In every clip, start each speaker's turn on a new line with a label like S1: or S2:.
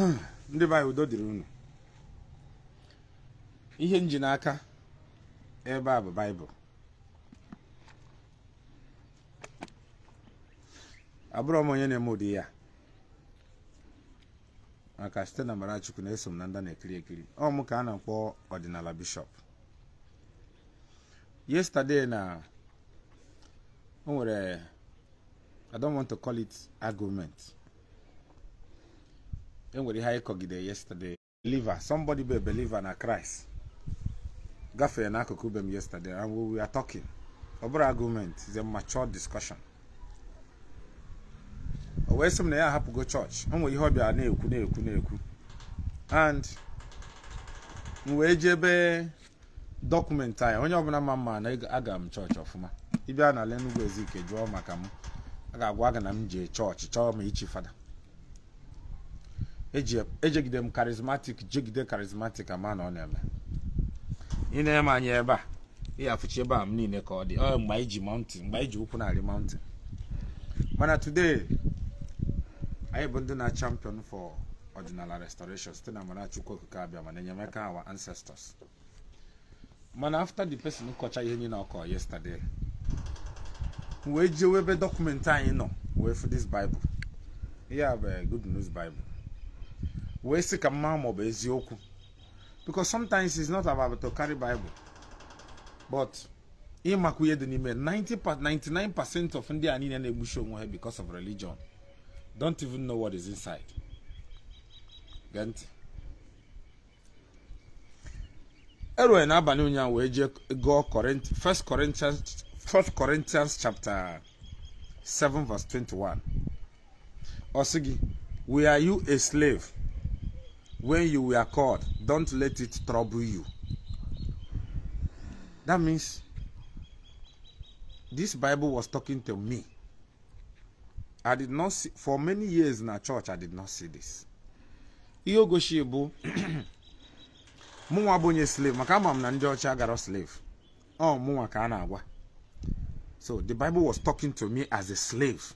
S1: Hmm. ndị be udo dịrị unu ihe nji n'aka ebe a bụ baịbụl abụrọ m onye na-eme ụdị ya maka site na Amarachukwu na-eso m na nda na-ekiri ekiri ọ mụ ka a na-akpọ ọdịnala bishọp yesterday na o nwere I don't enwere ihe anyị kọgide yesterday believer somebody be believer na Christ gafee n'akụkụ be m yesterday and we were talking ọ bụrụ argument is a mature discussion o wee sị m na ya ahapụgo chọọchị o ihe ọbịa na-ekwu na-ekwu na-ekwu and m wee jebe dọkụmentị anyị onye ọbụla ma mma na aga m chọọchị ọfụma ịbịa na ala Ezike jụọ maka m a ga-agwa aga na m jee chọọchị chọọ m ichi fada ejegide m karizmatik jegide karizmatik ama na ọ na-eme ị na-eme anya ebe a ihe afụchi ebe a m niile ka ọ dị ọ mgbe anyị ji mountain mgbe iji ụkwụ narị mountain mana today anyị bụ ndị na champion for ọdịnala restoration site na mara chukwu okike abịa mana enyemaka our ancestors mana after the person kọcha ihe niile ọkọ yesterday wee jewe ebe dọkụmentị anyị nọ wee fụ this bible a bụ eh, good news bible wee sị ka mma maọbụ eziokwu because sometimes it's not about to carry bible but ịmakwu ihe dị n'ime 99 percent of ndị a niile na-egbuchi onwe ha because of religion don't even know what is inside gee ntị erue n'abalị ụnyaahụ wee jee gụọ first corinthians first corinthians chapter 7 verse 21 ọ sị gị we are you a slave when you were called, don't let it trouble you. That means this Bible was talking to me. I did not see, for many years in a church, I did not see this. Ihe ogoshi slave maka ama chagaro slave. Oh, mụnwa ka agwa So the Bible was talking to me as a slave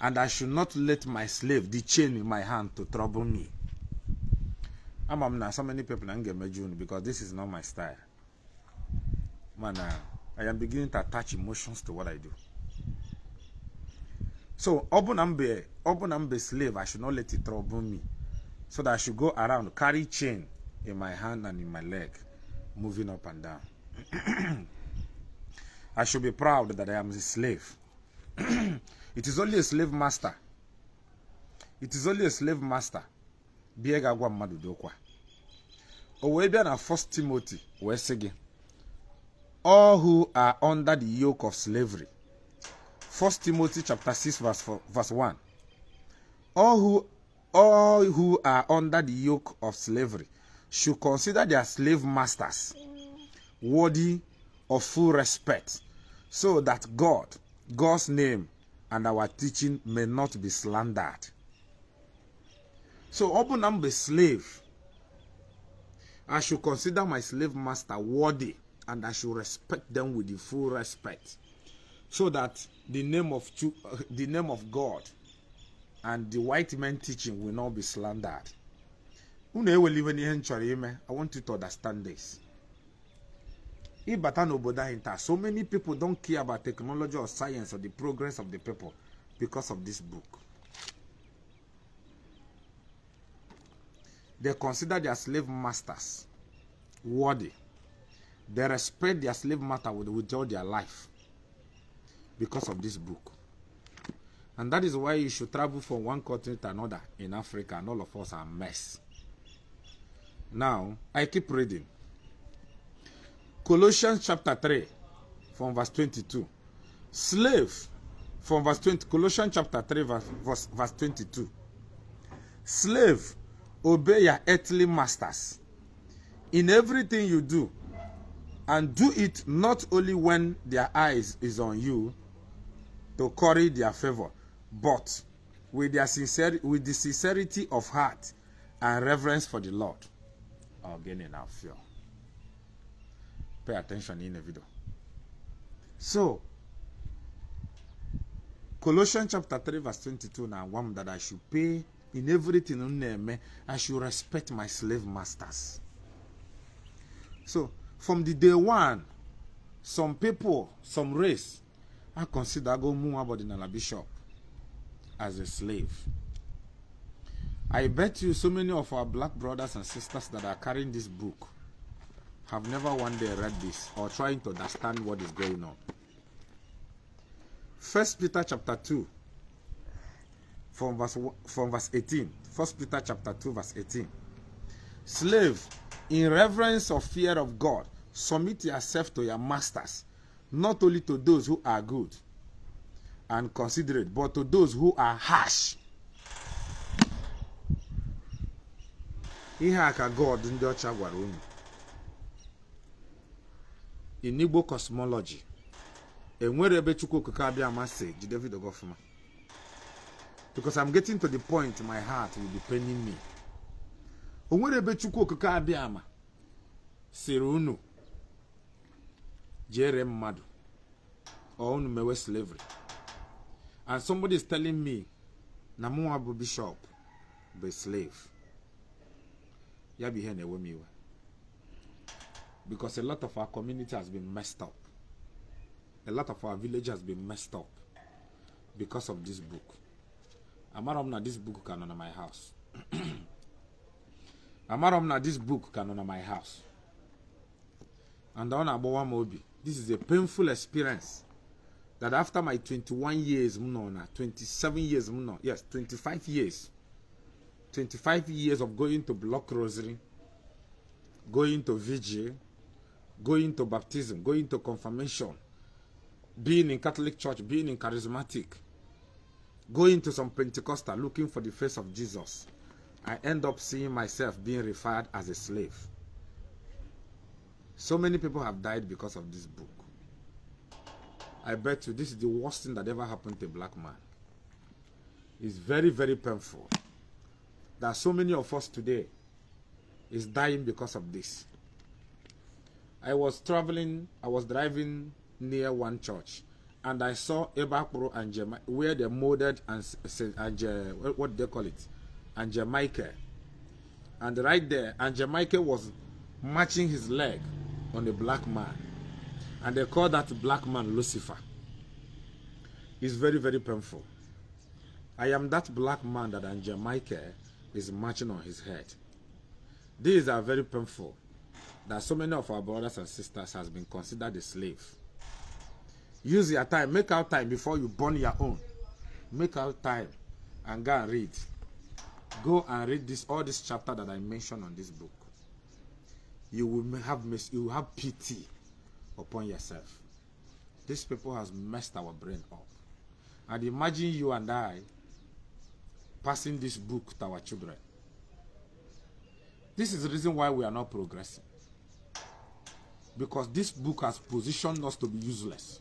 S1: and I should not let my slave, the chain in my hand, to trouble me. I am not so many people na get ga-emeju unu because this is not my style Man, uh, i am beginning to attach emotions to what i do so ọ I'm be ọ I'm be slave i should not let it trouble me so that i should go around carry chain in my hand and in my leg moving up and down i should be proud that i am a slave it is only a slave master it is only a slave master bie ga-agwa mmadụ dị ụkwa o wee bịa na first timothy wee sị gị all who are under the yoke of slavery first timothy chapter 6 verse, 4, verse 1 all who, all who are under the yoke of slavery should consider their slave masters worthy of full respect so that god god's name and our teaching may not be slandered So ọbụna I'm bụ slave I should consider my slave master worthy and I should respect them with the full respect so that the name of uh, the name of God and the white man' teaching will not be slandered. Unu eweli iwe n'ihe m chọrọ I want you to understand this. Ịbata n'obodo anyị taa so many people don't care about technology or science or the progress of the people because of this book. They consider their slave masters worthy. They respect their slave master with all their life because of this book. And that is why you should travel from one continent to another in Africa, and all of us are mess. Now, I keep reading. Colossians chapter 3, from verse 22. Slave, from verse 20. Colossians chapter 3, verse, verse, verse 22. Slave, obey your earthly masters in everything you do and do it not only when their eyes is on you to curry their favor but with their sincere with the sincerity of heart and reverence for the lord again in our fear pay attention in the video so colossians chapter 3 verse 22 now one that i should pay in everything m i should respect my slave masters so from the day one some people some race i consider go mụnwa ọdịnala bishop as a slave i bet you so many of our black brothers and sisters that are carrying this book have never one day read this or trying to understand what is going on. First Peter chapter 2 from verse from verse 18 first peter chapter 2 verse 18 slave in reverence of fear of god submit yourself to your masters not only to those who are good and considerate but to those who are harsh ihe a ka god ndị ọcha gwara unu in igbo cosmology enwere ebe chukwu okike abịa amasị ji david ogofuma because I'm getting to the point my heart will be paining me. Onwere ebechukwu okike abịa ama sịrị unu jere mmadụ ọ unu mewe slavery and somebody is telling me na mụnwa bụ bishop bụ slave ya bụ ihe na-ewe m iwe because a lot of our community has been messed up a lot of our village has been messed up because of this book amara m na this book ka nọ na my house amara m na this book ka nọ na my house and ọ na-agbawa m obi this is a painful experience that after my 21 years m nọ na 27 years m nọ yes 25 years 25 years of going to block rosary going to vigil going to baptism going to confirmation being in catholic church being in charismatic going to some Pentecostal looking for the face of Jesus, I end up seeing myself being referred as a slave. So many people have died because of this book. I bet you this is the worst thing that ever happened to a black man. It's very, very painful that so many of us today is dying because of this. I was traveling, I was driving near one church and I saw Ebakpro and Jema where they molded and, and uh, what do they call it? And Jamaica. And right there, and Jamaica was matching his leg on a black man. And they call that black man Lucifer. It's very, very painful. I am that black man that and Jamaica is matching on his head. These are very painful that so many of our brothers and sisters has been considered a slave. Use your time. Make out time before you burn your own. Make out time and go and read. Go and read this all this chapter that I mentioned on this book. You will have you will have pity upon yourself. This people has messed our brain up. And imagine you and I passing this book to our children. This is the reason why we are not progressing. Because this book has positioned us to be useless.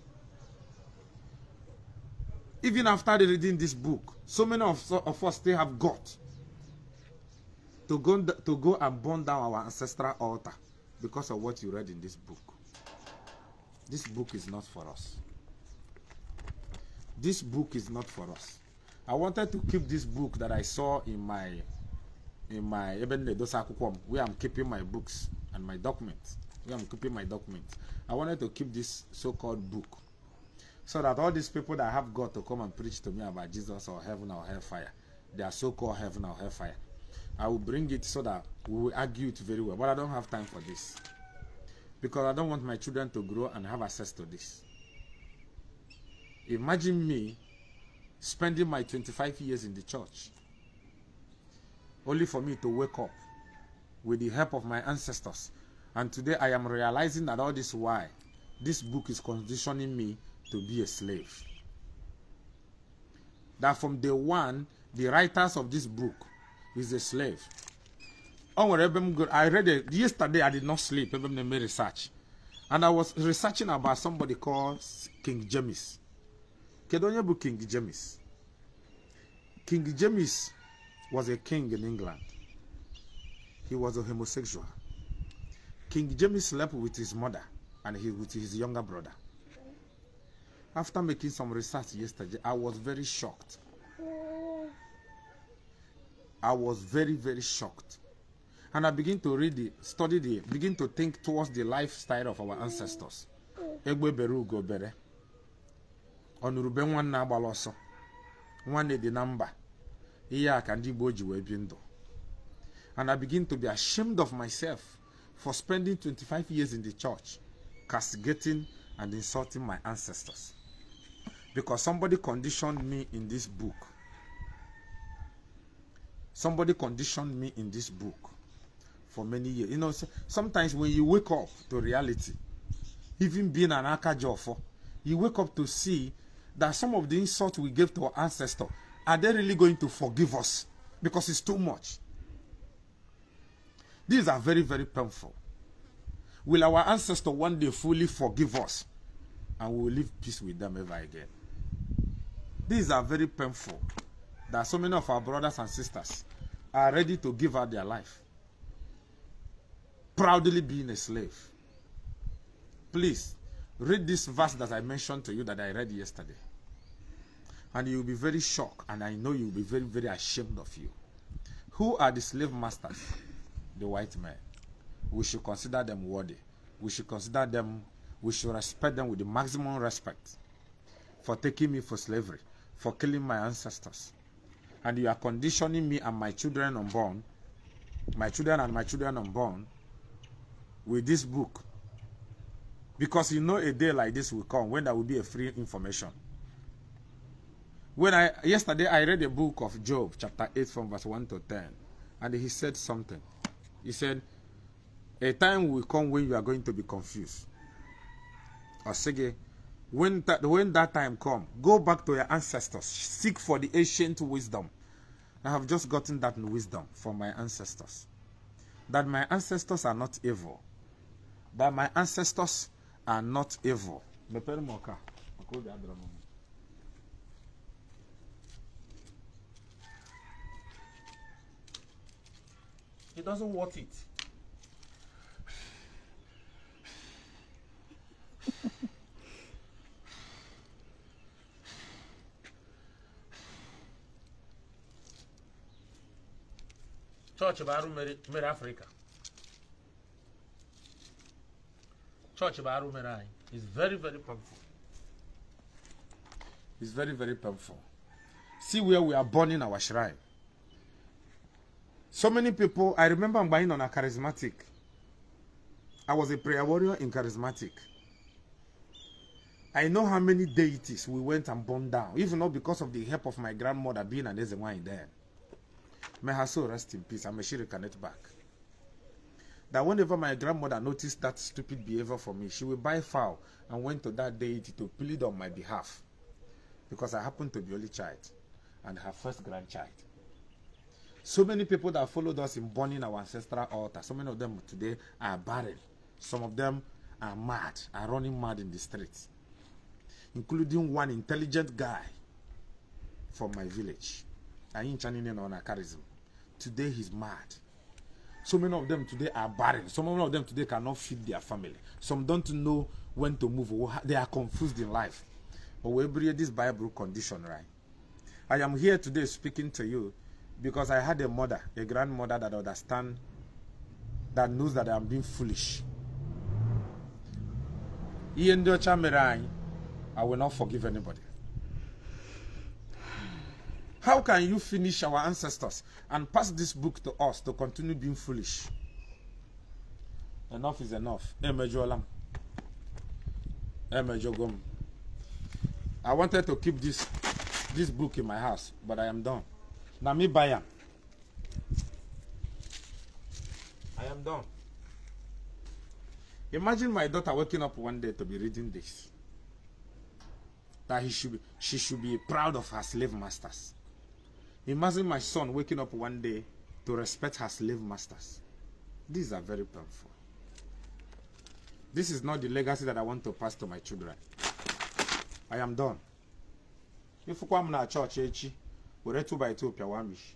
S1: even after reading this book, so many of, of us still have got to go, to go and burn down our ancestral altar because of what you read in this book. This book is not for us. This book is not for us. I wanted to keep this book that I saw in my in my Eben Ledosakukwom, where I'm keeping my books and my documents. Where I'm keeping my documents. I wanted to keep this so-called book So that all these people that have got to come and preach to me about Jesus or heaven or hellfire, their so-called heaven or hellfire, I will bring it so that we will argue it very well. But I don't have time for this. Because I don't want my children to grow and have access to this. Imagine me spending my 25 years in the church only for me to wake up with the help of my ancestors. And today I am realizing that all this why this book is conditioning me to be a slave. That from day one, the writers of this book is a slave. Oh, I read it yesterday, I did not sleep, I made research. And I was researching about somebody called King James. Kedonyebu King James. King James was a king in England. He was a homosexual. King James slept with his mother and he with his younger brother. after making some research yesterday, I was very shocked. I was very, very shocked. And I begin to read the, study the, begin to think towards the lifestyle of our ancestors. Egwe beru go bere. Ọnụrụbe nwanne agbala ọsọ. Nwanne dị na mba. Ihe a ka ndị Igbo ji wee And I begin to be ashamed of myself for spending 25 years in the church, castigating and insulting my ancestors. because somebody conditioned me in this book. Somebody conditioned me in this book for many years. You know, sometimes when you wake up to reality, even being an Akajofo, you wake up to see that some of the insults we gave to our ancestors, are they really going to forgive us? Because it's too much. These are very, very painful. Will our ancestor one day fully forgive us? And we will live peace with them ever again. These are very painful. That so many of our brothers and sisters are ready to give up their life, proudly being a slave. Please read this verse that I mentioned to you that I read yesterday. And you'll be very shocked, and I know you'll be very, very ashamed of you. Who are the slave masters? The white men. We should consider them worthy. We should consider them, we should respect them with the maximum respect for taking me for slavery. for killing my ancestors. And you are conditioning me and my children unborn, my children and my children unborn, with this book. Because you know a day like this will come when there will be a free information. When I yesterday I read the book of Job, chapter 8 from verse 1 to 10, and he said something. He said, A time will come when you are going to be confused. Osige, when that when that time come go back to your ancestors seek for the ancient wisdom i have just gotten that wisdom from my ancestors that my ancestors are not evil that my ancestors are not evil he doesn't want it church baru arụ mere Africa. chọọchị baru merai. is very very powerful. It's very very powerful. see where we are burning our shrine so many people i remember I'm buying on a charismatic i was a prayer warrior in charismatic I know how many deities we went and burned down, even though because of the help of my grandmother being an Ezewanyi there. May her soul rest in peace. I'm a she reconnect back. That whenever my grandmother noticed that stupid behavior for me, she would buy fowl and went to that deity to plead on my behalf. Because I happened to be only child and her first grandchild. So many people that followed us in burning our ancestral altar, so many of them today are barren. Some of them are mad, are running mad in the streets, including one intelligent guy from my village. anyị ncha niile nọ charism today he's mad so many of them today are barren some of them today cannot feed their family some don't know when to move they are confused in life but we bring this bible condition right i am here today speaking to you because i had a mother a grandmother that understand that knows that i'm being foolish i will not forgive anybody how can you finish our ancestors and pass this book to us to continue being foolish? Enough is enough. I wanted to keep this this book in my house, but I am done. Nami I am done. Imagine my daughter waking up one day to be reading this. That he should be, she should be proud of her slave masters. Imagine my son waking up one day to respect her slave masters. These are very painful. This is not the legacy that I want to pass to my children. I am done. If you I'm not church, we're two by two, Piawamish.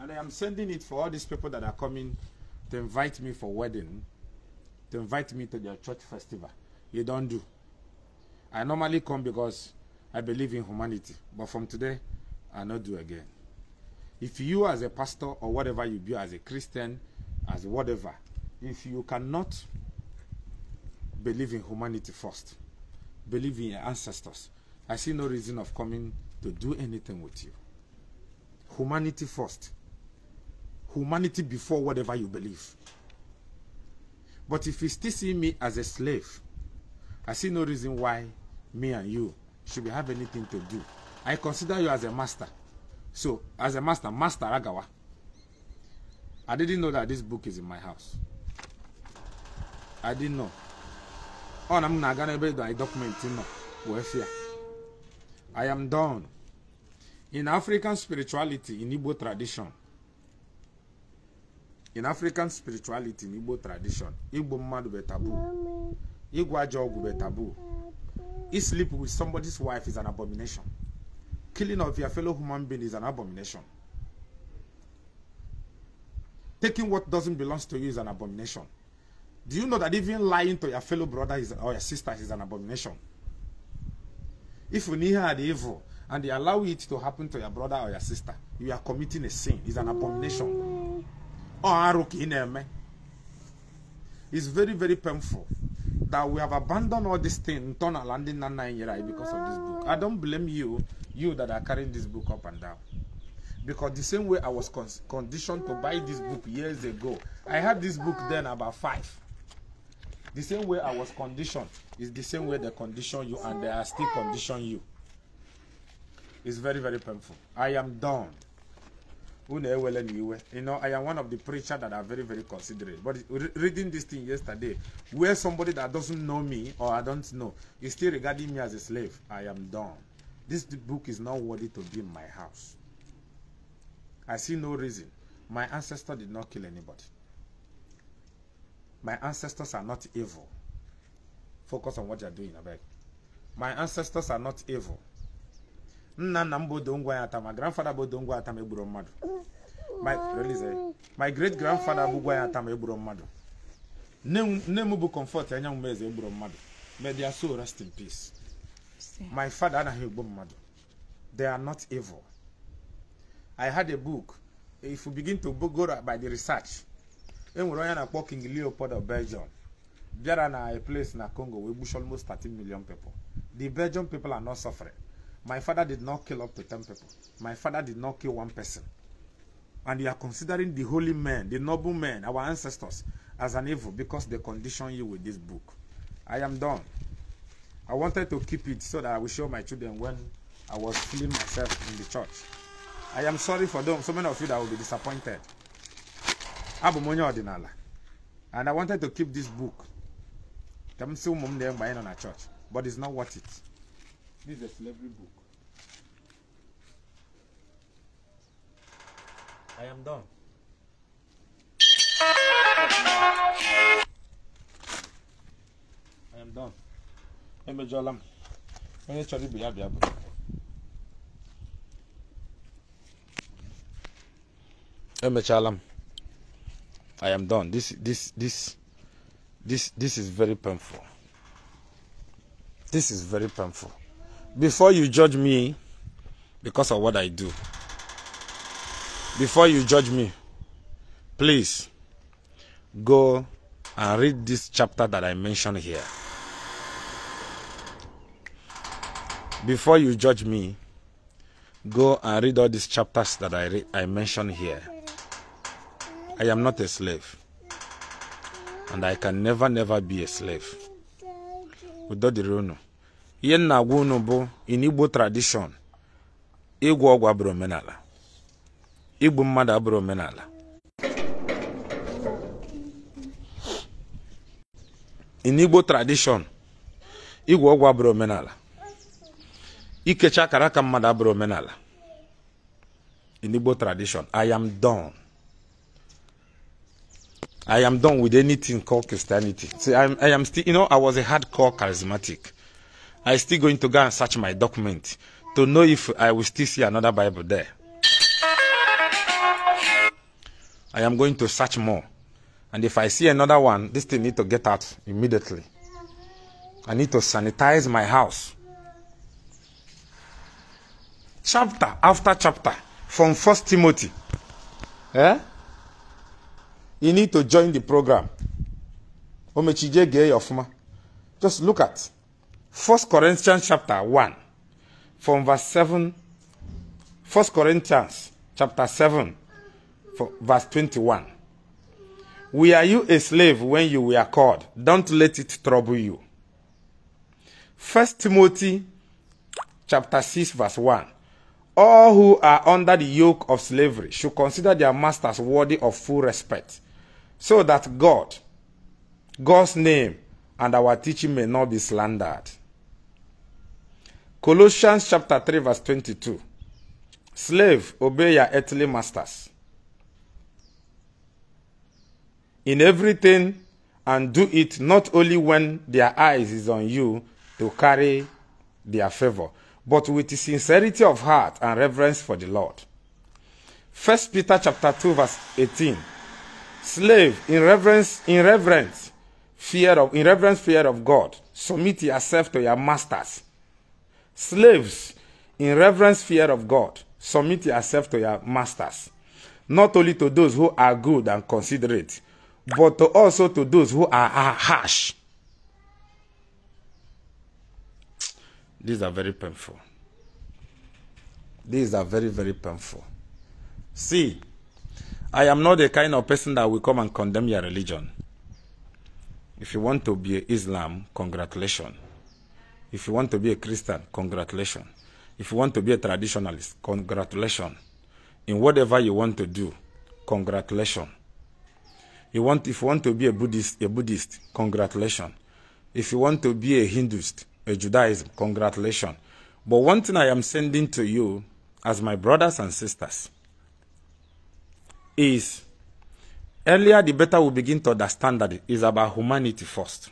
S1: And I am sending it for all these people that are coming to invite me for wedding, to invite me to their church festival. You don't do. I normally come because I believe in humanity, but from today, I'll not do again. If you as a pastor or whatever you be as a Christian, as whatever, if you cannot believe in humanity first, believe in your ancestors, I see no reason of coming to do anything with you. Humanity first. Humanity before whatever you believe. But if you still see me as a slave, I see no reason why me and you should we have anything to do. I consider you as a master. So, as a master, Master Agawa. I didn't know that this book is in my house. I didn't know. Oh, I'm not gonna be the document in Wefia. I am done. In African spirituality, in Igbo tradition, in African spirituality, in Igbo tradition, Igbo mmadu be taboo. Igbo ajọ be taboo. He sleep with somebody's wife is an abomination. Killing of your fellow human being is an abomination. Taking what doesn't belong to you is an abomination. Do you know that even lying to your fellow brother is, or your sister is an abomination? If you near the evil and they allow it to happen to your brother or your sister, you are committing a sin. It's an abomination. It's very, very painful. that we have abandoned all these things turn and landing because of this book. I don't blame you, you that are carrying this book up and down. Because the same way I was con conditioned to buy this book years ago, I had this book then about five. The same way I was conditioned is the same way they condition you and they are still condition you. It's very, very painful. I am done who na-ewele m iwe you know i am one of the preachers that are very very considerate but reading this thing yesterday where somebody that doesn't know me or i don't know is still regarding me as a slave i am done this book is not worthy to be in my house i see no reason my ancestor did not kill anybody my ancestors are not evil focus on what you are doing abeg my ancestors are not evil nna nna m bụ odongwa ya ata ma grandfada bụ odongwa ata ma egburu mmadụ my eh. great grandfada bụgwa ya ata ma egburu mmadụ nne m bụ comfort anyanwụ m eze egburu mmadụ may their soul rest in peace my father anaghị egbu mmadụ they are not evil i had a book if you begin to go by the research enwere onye na-akpọ king leopold of belgium bịara na a place na congo wee gbuchi almost 13 million people the Belgium people are not suffering My father did not kill up to 10 people. My father did not kill one person. And you are considering the holy men, the noble men, our ancestors, as an evil because they condition you with this book. I am done. I wanted to keep it so that I will show my children when I was feeling myself in the church. I am sorry for them. So many of you that will be disappointed. Abumonya Ordinala. And I wanted to keep this book. But it's not worth it. This is a slavery book. I am done. I am done. I am Onye i ibe ya bịa bụ. Emechala am done. This this this this this is very painful. This is very painful before you judge me because of what I do, before you judge me, please go and read this chapter that I mentioned here. Before you judge me, go and read all these chapters that I, I mentioned here. I am not a slave, and I can never, never be a slave. Without the Rono. ihe nna agwa unu bụ in igbo tradishọn ịgwọ ọgwụ abụrụ omenala igbu mmadụ abụrụ omenala in igbo tradishọn igwu ọgwụ abụrụ omenala ikecha akara aka mmadụ abụrụ omenala in igbo tradishọn i am done i am done with anything called christianity See, I, am, i am still you know i was a hardcore charismatic I still going to go and search my document to know if I will still see another Bible there. I am going to search more. And if I see another one, this thing need to get out immediately. I need to sanitize my house. Chapter after chapter from First Timothy. Eh? You need to join the program. Just look at 1 Corinthians chapter 1 from verse 7 First Corinthians chapter 7 verse 21 are you a slave when you were called? Don't let it trouble you. 1 Timothy chapter 6 verse 1 all who are under the yoke of slavery should consider their masters worthy of full respect, so that God, God's name, and our teaching may not be slandered. Colossians chapter 3 verse 22. Slave, obey your earthly masters. In everything and do it not only when their eyes is on you to carry their favor, but with sincerity of heart and reverence for the Lord. 1 Peter chapter 2 verse 18. Slave, in reverence, in reverence, fear of, in reverence fear of God, submit yourself to your masters Slaves, in reverence fear of God, submit yourself to your masters, not only to those who are good and considerate, but to also to those who are, are harsh. These are very painful. These are very, very painful. See, I am not the kind of person that will come and condemn your religion. If you want to be Islam, congratulations. If you want to be a Christian, congratulations. If you want to be a traditionalist, congratulations. In whatever you want to do, congratulations. You want, if you want to be a Buddhist, a Buddhist, congratulations. If you want to be a Hinduist, a Judaism, congratulations. But one thing I am sending to you as my brothers and sisters is earlier the better we begin to understand that it is about humanity first.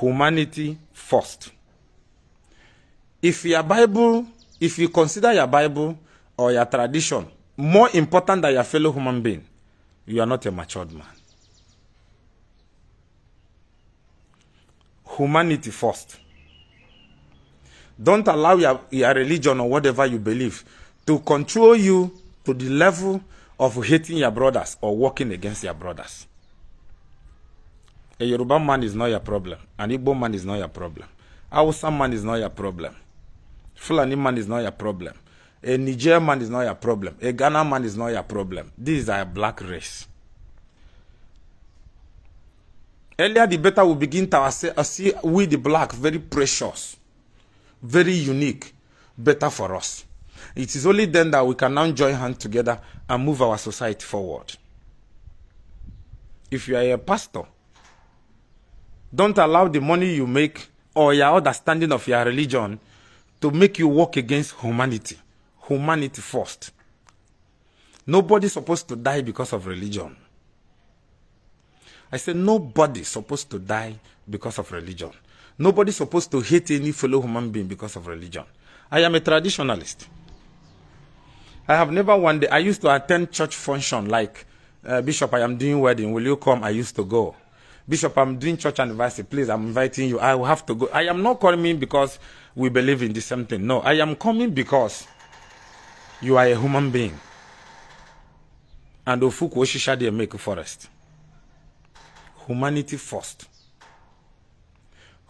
S1: humanity first. If your Bible, if you consider your Bible or your tradition more important than your fellow human being, you are not a matured man. Humanity first. Don't allow your, your religion or whatever you believe to control you to the level of hating your brothers or working against your brothers. A Yoruba man is not your problem. An Igbo man is not your problem. Hausa man is not your problem. Fulani man is not your problem. A Nigerian man is not your problem. A Ghana man is not your problem. These are a black race. Earlier, the better we begin to uh, see we the black very precious, very unique, better for us. It is only then that we can now join hands together and move our society forward. If you are a pastor, don't allow the money you make or your understanding of your religion to make you work against humanity. Humanity first. Nobody's supposed to die because of religion. I said, nobody's supposed to die because of religion. Nobody's supposed to hate any fellow human being because of religion. I am a traditionalist. I have never one day, I used to attend church function like, uh, Bishop, I am doing wedding, will you come? I used to go. Bishop, I'm doing church anniversary. Please, I'm inviting you. I will have to go. I am not coming because we believe in the same thing. No, I am coming because you are a human being. And Ofuku Oshisha they make forest. Humanity first.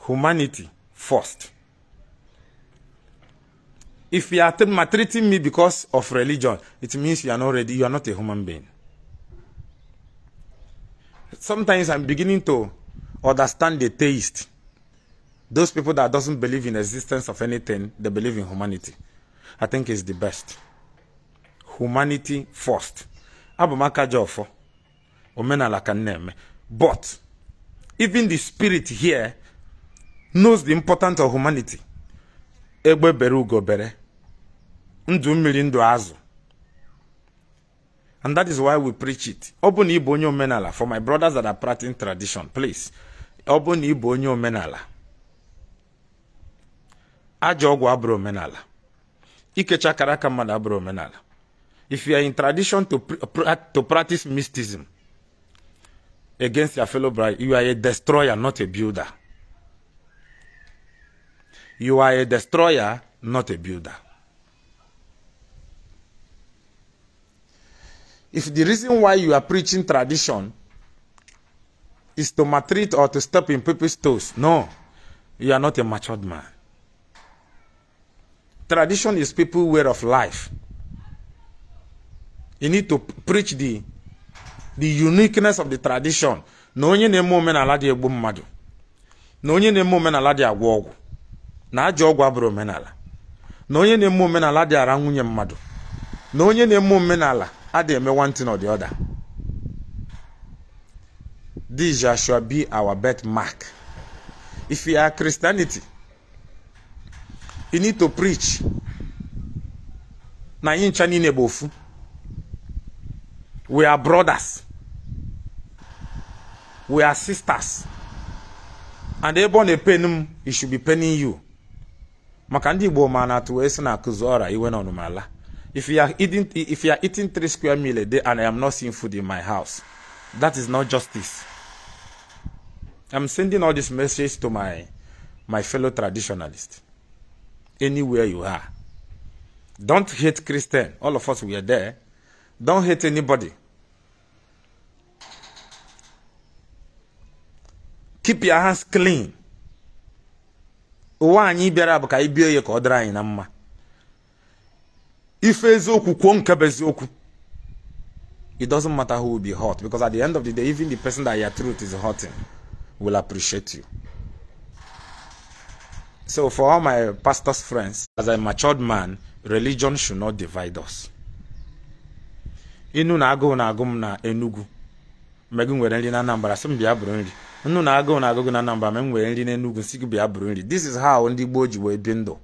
S1: Humanity first. If you are maltreating me because of religion, it means you are not ready. You are not a human being sometimes I'm beginning to understand the taste. Those people that doesn't believe in existence of anything, they believe in humanity. I think it's the best. Humanity first. Makajofo, Jofo. Omenala Kaneme. But even the spirit here knows the importance of humanity. Egbe bere ugo bere. Ndu mmiri ndu azụ. And that is why we preach it. Open Ibonyo Menala for my brothers that are practicing tradition, please. Open Ibonyo Menala. Ajogwa Abro Menala. Ikecha Karaka Abro Menala. If you are in tradition to, to practice mysticism against your fellow bride, you are a destroyer, not a builder. You are a destroyer, not a builder. if the reason why you are preaching tradition is to maltreat or to step in people's toes, no, you are not a matured man. Tradition is people's way of life. You need to preach the the uniqueness of the tradition na onye na-eme omenala dị egbu mmadụ na onye na-eme omenala dị agwọ ọgwụ na ajọ ọgwụ abụrụ omenala na onye na-eme omenala dị ara nwunye mmadụ na onye na-eme omenala a dey eme one thing or the other this shall be our mark if you are christianity you need to preach na anyị ncha niile bụ ofu we are brothers we are sisters and ebe ọ na-epen m it should be penning you maka ndị igbo ma na-atụ wee sị na akụzi ọra iwe na ọnụmala If you are eating if you are eating three square meal a day and I am not seeing food in my house, that is not justice. I'm sending all this message to my my fellow traditionalists. Anywhere you are. Don't hate Christian. All of us we are there. Don't hate anybody. Keep your hands clean. ụwa anyị bịara mma ife eziokwu kwuo nke bụ eziokwu it doesn't matter who will be hot because at the end of the day even the person that your truth is hurting will appreciate you so for all my pastors friends as a matured man religion should not divide us inu na agụụ na agụ m na Enugu mgbe gị nwere nri na Anambra sị m bịa bụrụ nri nnu na agụụ na agụgụ na Anambra mgbe m nwere nri na Enugu sị gị bịa bụrụ nri this is how ndị Igbo ji wee bi ndụ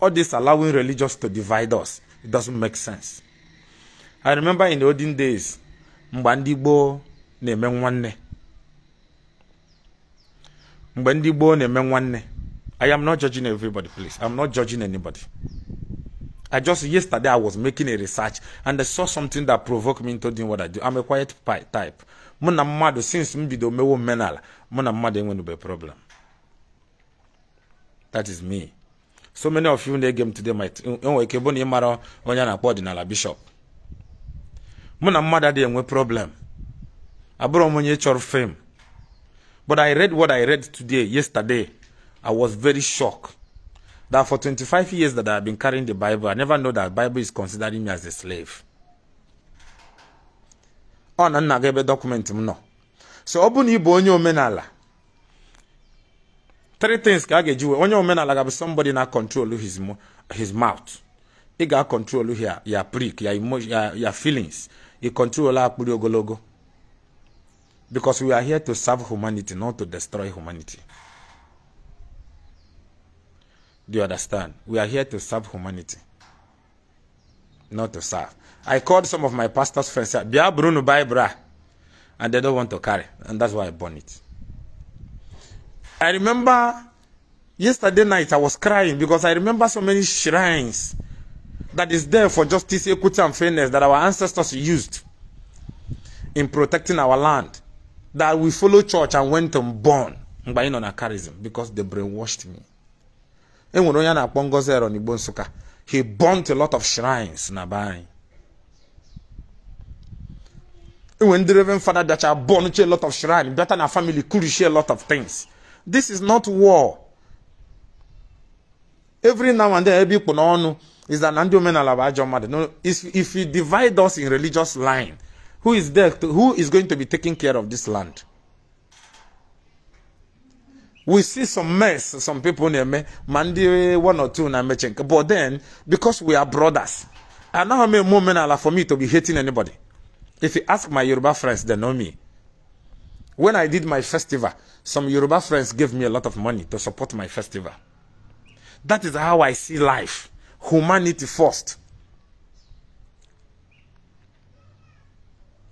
S1: all this allowing religious to divide us it doesn't make sense i remember in the olden days mgbe ndị na-eme nwanne mgbe na-eme nwanne i am not judging everybody please i'm not judging anybody i just yesterday i was making a research and i saw something that provoked me into doing what i do i'm a quiet type mụ na since m bido mewo menal mụ na mmadụ enwenube problem that is me so many of you na-ege m today might enwere ike bụ na ịmara onye a na-akpọ ọdịnala bishọp mụ na mmadụ adịghị enwe problem abụrụ m onye chọrọ fame but i read what i read today yesterday i was very shocked that for 25 years that i have been carrying the bible i never know that bible is considering me as a slave ọ na nna gị ebe dọkụmentị m nọ so ọ bụ na ị bụ onye omenala three things ka a ga-eji wee onye omenala ga-abụ somebody na control his, his mouth ị ga-control here ya prick ya emotion ya feelings ị control akpụrụ ogologo because we are here to serve humanity not to destroy humanity do you understand we are here to serve humanity not to serve i called some of my pastor's friends bịa bruno nu bra and they don't want to carry and that's why i burn it I remember yesterday night I was crying because I remember so many shrines that is there for justice, equity, and fairness that our ancestors used in protecting our land. That we follow church and went and born by on a charism because they brainwashed me. He burnt a lot of shrines nabai. When the Reverend Father that I burned a lot of shrines, better than family could share a lot of things. This is not war. Every now and then, ebe ikpu n'ọnụ is that na ndị omenala bụ ajọ mmadụ. No, if, if you divide us in religious line, who is there to, who is going to be taking care of this land? we see some mess some people na-eme ma ndị one or two na-emeche nke but then because we are brothers I anaghị m eme omenala for me to be hating anybody if you ask my yoruba friends they know me when i did my festival Some Yoruba friends gave me a lot of money to support my festival. That is how I see life. Humanity first.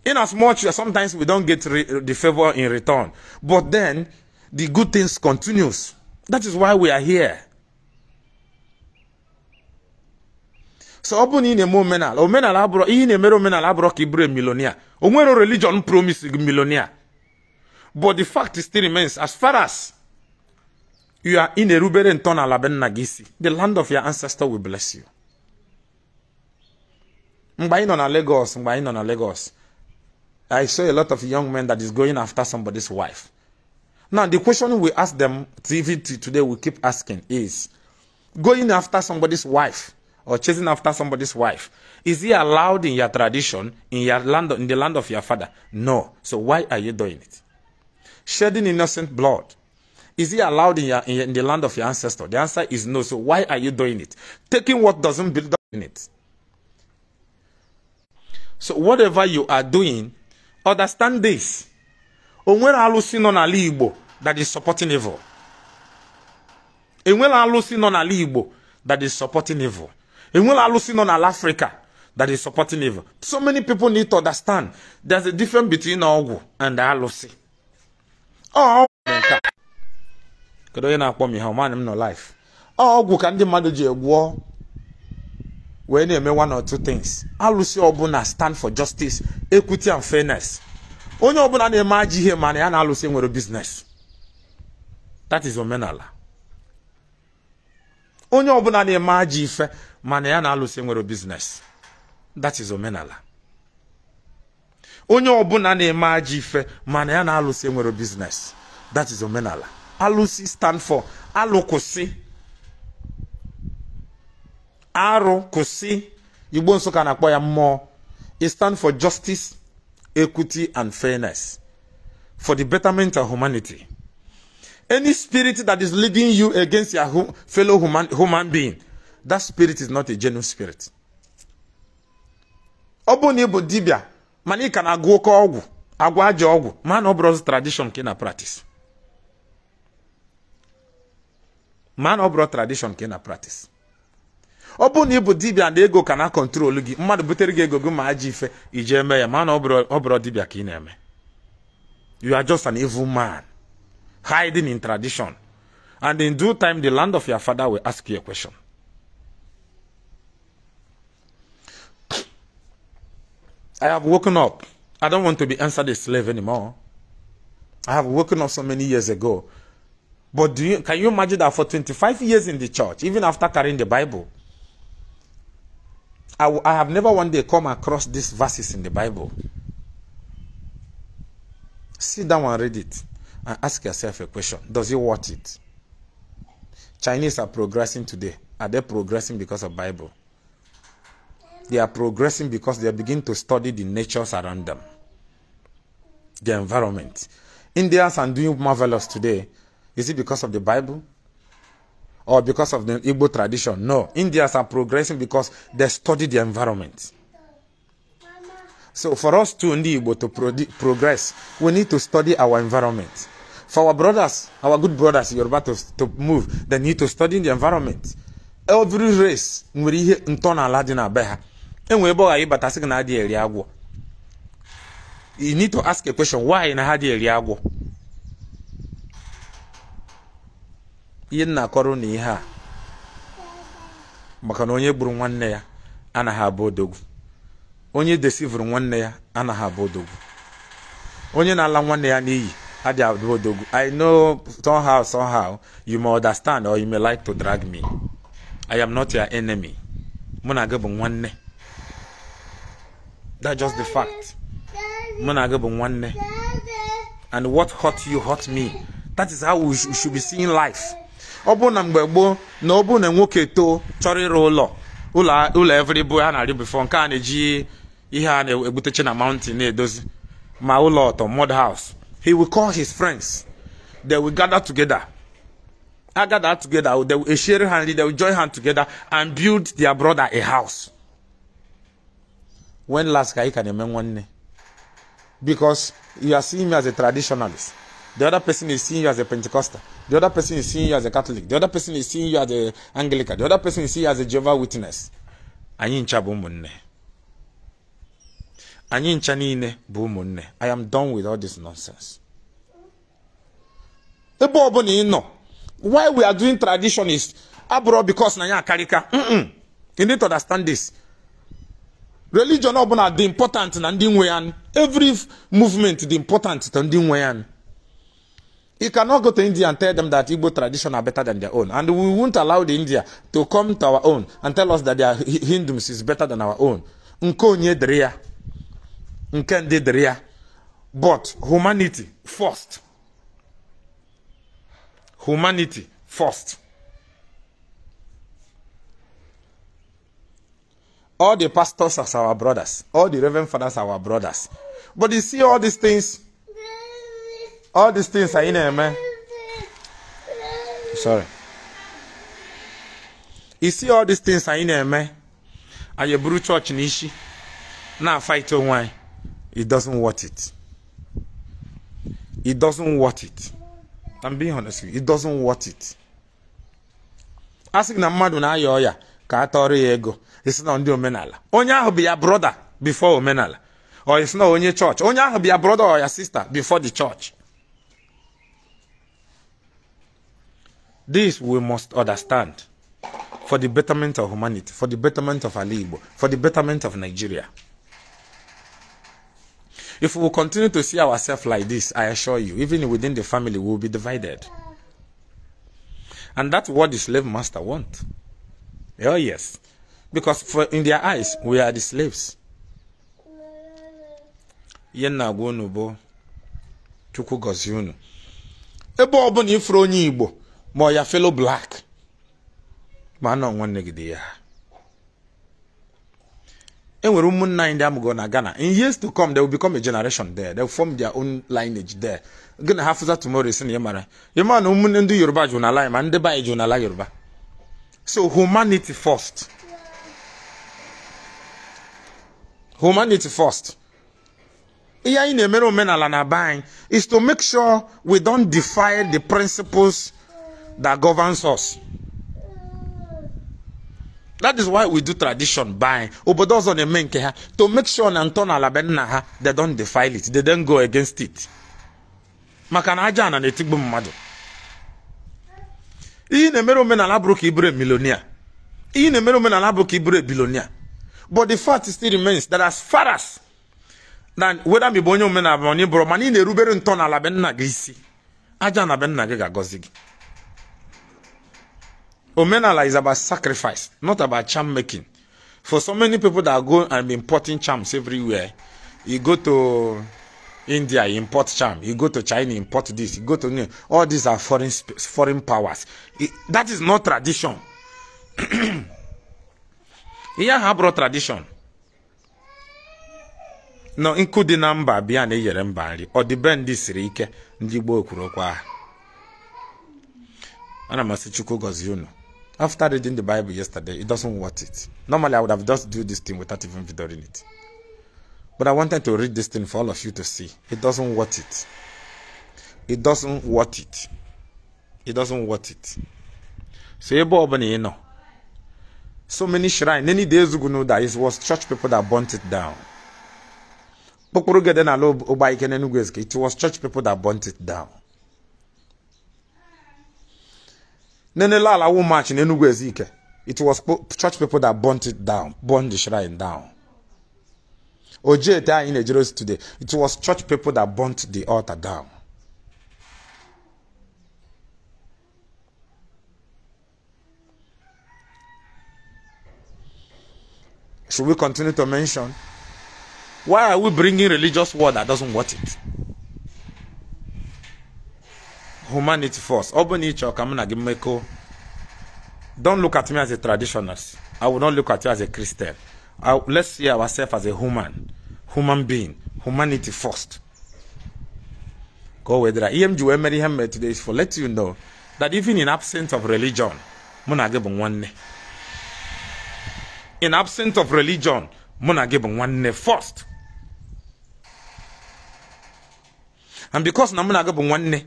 S1: In as much as sometimes we don't get the favor in return, but then the good things continues. That is why we are here. So open in a ị abro in a abụrụ ihe abro emere omenala abụrụ religion promise milonia. But the fact still remains, as far as you are in Erubere and Ton Nagisi, the land of your ancestor will bless you. Mgbain on a Lagos, Mgbain on a Lagos. I saw a lot of young men that is going after somebody's wife. Now, the question we ask them, TV today we keep asking is, going after somebody's wife or chasing after somebody's wife, is it allowed in your tradition, in, your land, in the land of your father? No. So why are you doing it? shedding innocent blood? Is it allowed in, your, in, the land of your ancestor? The answer is no. So why are you doing it? Taking what doesn't build up in it. So whatever you are doing, understand this. Onwere alụsị nọ n'ala Igbo that is supporting evil. Enwere alụsị nọ n'ala Igbo that is supporting evil. Enwere alụsị nọ n'ala Africa that is supporting evil. So many people need to understand there's a difference between ọgwụ and alụsị. kedu onye na-akpọ m ihe ọmanị m nọ life ọgwụ ka ndị mmadụ ji egwuo wee na-eme one or two things alụsị ọbụla stand for justice equity and fairness onye ọbụla na-eme ajọ ihe mana ya na-alụsị nwere business that is omenala onye ọbụla na-eme ajọ ife mana ya na-alụsị nwere business that is omenala onye ọbụla na-eme ajọ ife mana ya na alụsị enwere biznes that is omenala alụsị stand for alụkwụsị kwụsị arụ kwụsị igbo nsụka na-akpọ ya mmụọ e stand for justice equity and fairness for the betterment of humanity any spirit that is leading you against your fellow human, human being that spirit is not a genuine spirit ọ na bụ dibia mana ị ka na-agụ oke ọgwụ agwa aja ọgwụ man ọ bụrụ tradishọn ka ị na pratis mana ọ bụrụ tradishọn ka ị na praktis ọ bụrụ na ị bụ dibịa na ego ka na kọntrol gị mmadụ butere gị ego gị ma aja ife iji eme ya mana ọ bụrụ dibịa ka ị na-eme you are just an evil man hiding in tradition and in due time the land of your father will ask you a question I have woken up. I don't want to be answered a slave anymore. I have woken up so many years ago. But you, can you imagine that for 25 years in the church, even after carrying the Bible, I, have never one day come across these verses in the Bible. Sit down and read it and ask yourself a question Does it worth it? Chinese are progressing today. Are they progressing because of Bible? They are progressing because they begin to study the natures around them, the environment. Indians are doing marvelous today. Is it because of the Bible? Or because of the Igbo tradition? No. Indians are progressing because they study the environment. So for us to Igbo to pro progress, we need to study our environment. For our brothers, our good brothers, Yoruba to, to move, they need to study the environment. Every race, we are here in na be ha. enwe ebe ọ ghara ịbata sị gị na adịghị eri agwọ you need to ask a question why na ha dị eri agwọ ihe nna akọrọ na ihe a maka na onye gburu nwanne ya anaghị abụ odogwu onye desivuru nwanne ya anaghị abụ odogwu onye na-ala nwanne ya n'iyi adịghị abụ odogwu i know somehow somehow you may understand or you may like to drag me i am not your enemy mụ na gị bụ nwanne That's just the fact. Nwanne. And what hurt you hurt me. That is how we, sh we should be seeing life. ọ bụ na mgbe gboo na ọ bụ na nwoke too chọrọ ịrụ ụlọ ụlọ everyboy a na-arị bifọ nke a na-eji ihe a na-egbutechi na mountain na-edozi ma ụlọ ọtọ mud house he will call his friends they will gather together a gather together they will share ha they will join hand together and build their brother a house when last can you can remember one because you are seeing me as a traditionalist the other person is seeing you as a pentecostal the other person is seeing you as a catholic the other person is seeing you as a anglican the other person is seeing you as a jehovah witness anyị ncha bụ ụmụnne anyị ncha niile bụ ụmụnne i am done with all this nonsense ebe ọ bụla ị nọ why we are doing tradition is abụrụ because na ya akarịka you need to understand this religion ọbụla dị important na ndị nwe ya every movement dị important to ndị nwe ya You cannot go to India and tell them that Igbo tradition are better than their own. And we won't allow the India to come to our own and tell us that their Hindus is better than our own. Nke onye dịrị ya. Nke ndị dịrị ya. But humanity first. Humanity first. all the pastors as our brothers, all the reverend fathers are our brothers. But you see all these things, all these things are in there, Sorry. You see all these things are in there, man. And you brew church in Ishi. Now fight your wine. It doesn't worth it. It doesn't worth it. I'm being honest with you. It doesn't worth it. Asking a man na I ya, ka atọrọ ya ego. It's not ndị omenala onye ahụ be your brother before omenala or it's not only church. onye ahụ be your brother or your sister before the church this we must understand for the betterment of humanity for the betterment of our igbo for the betterment of nigeria if we continue to see ourselves like this i assure you even within the family we will be divided and that's what the slave master want oh yes because for, in their eyes we are the slaves ihe nna agwa unu bụ chukwu gọzie unu ebe ọ bụla ifuru onye igbo ma ọ ya felo black ma nọ nwanne gị dị ya e nwere ụmụnna ndị amụgo na Ghana in years to come they will become a generation there they will form their own lineage there gị na ha fụza tomorrow isi na ya mara ya ma na ụmụnne ndị Yoruba jụ n'ala anyị ma ndị n'ala Yoruba so humanity first humanity first ihe anyị na-emere omenala na be is to make sure we don defy the principles that govern us that is why we do tradition by obodo ọzọ na-eme nke ha to make sure na ntọala be nna ha they don defile it they don go against it maka na aja ana na mmadụ ihe na-emere omenala bụrụ ka ị bụrụ milionia ihe na-emere omenala bụrụ ka ị bụrụ bilonia But the fact still remains that as far as na whether mi bụ onye omenala onye bụrụ mana ị na-erubere ntọala be nna gị aja na ben nna gị ga-agọzi gị omenala is about sacrifice not about charm making for so many people that go and be importing charms everywhere you go to India you import charm you go to China you import this you go to New all these are foreign foreign powers it, that is not tradition ihe habro tradition. nọ nkụ dị na mba bịa na eyere mba nri ọdịbe ndị siri ike ndị gboo kwuru ana m asị after reading the bible yesterday it doesn't worth it normally i would have just do this thing without even reading it but i wanted to read this thing for all of you to see it doesn't worth it it doesn't worth it it doesn't worth it so ebe ọ bụla ị so many shrine. many days ago know that it was church people that burnt it down kpokporo gede na it was church people that burnt it down nenele wo march n'Enugu it was church people that burnt it down burned the shrine down oje ete anyị na-ejere today it was church people that burnt the altar down Should we continue to mention? Why are we bringing religious war that doesn't want it? Humanity first. Don't look at me as a traditionalist. I will not look at you as a Christian. I, let's see ourselves as a human, human being, humanity first. Go with that. EMG Emery Hammer today is for let you know that even in absence of religion, Munagebun one. in absence of religion mụ na gị bụ nwanne first and because na mụ na gị bụ nwanne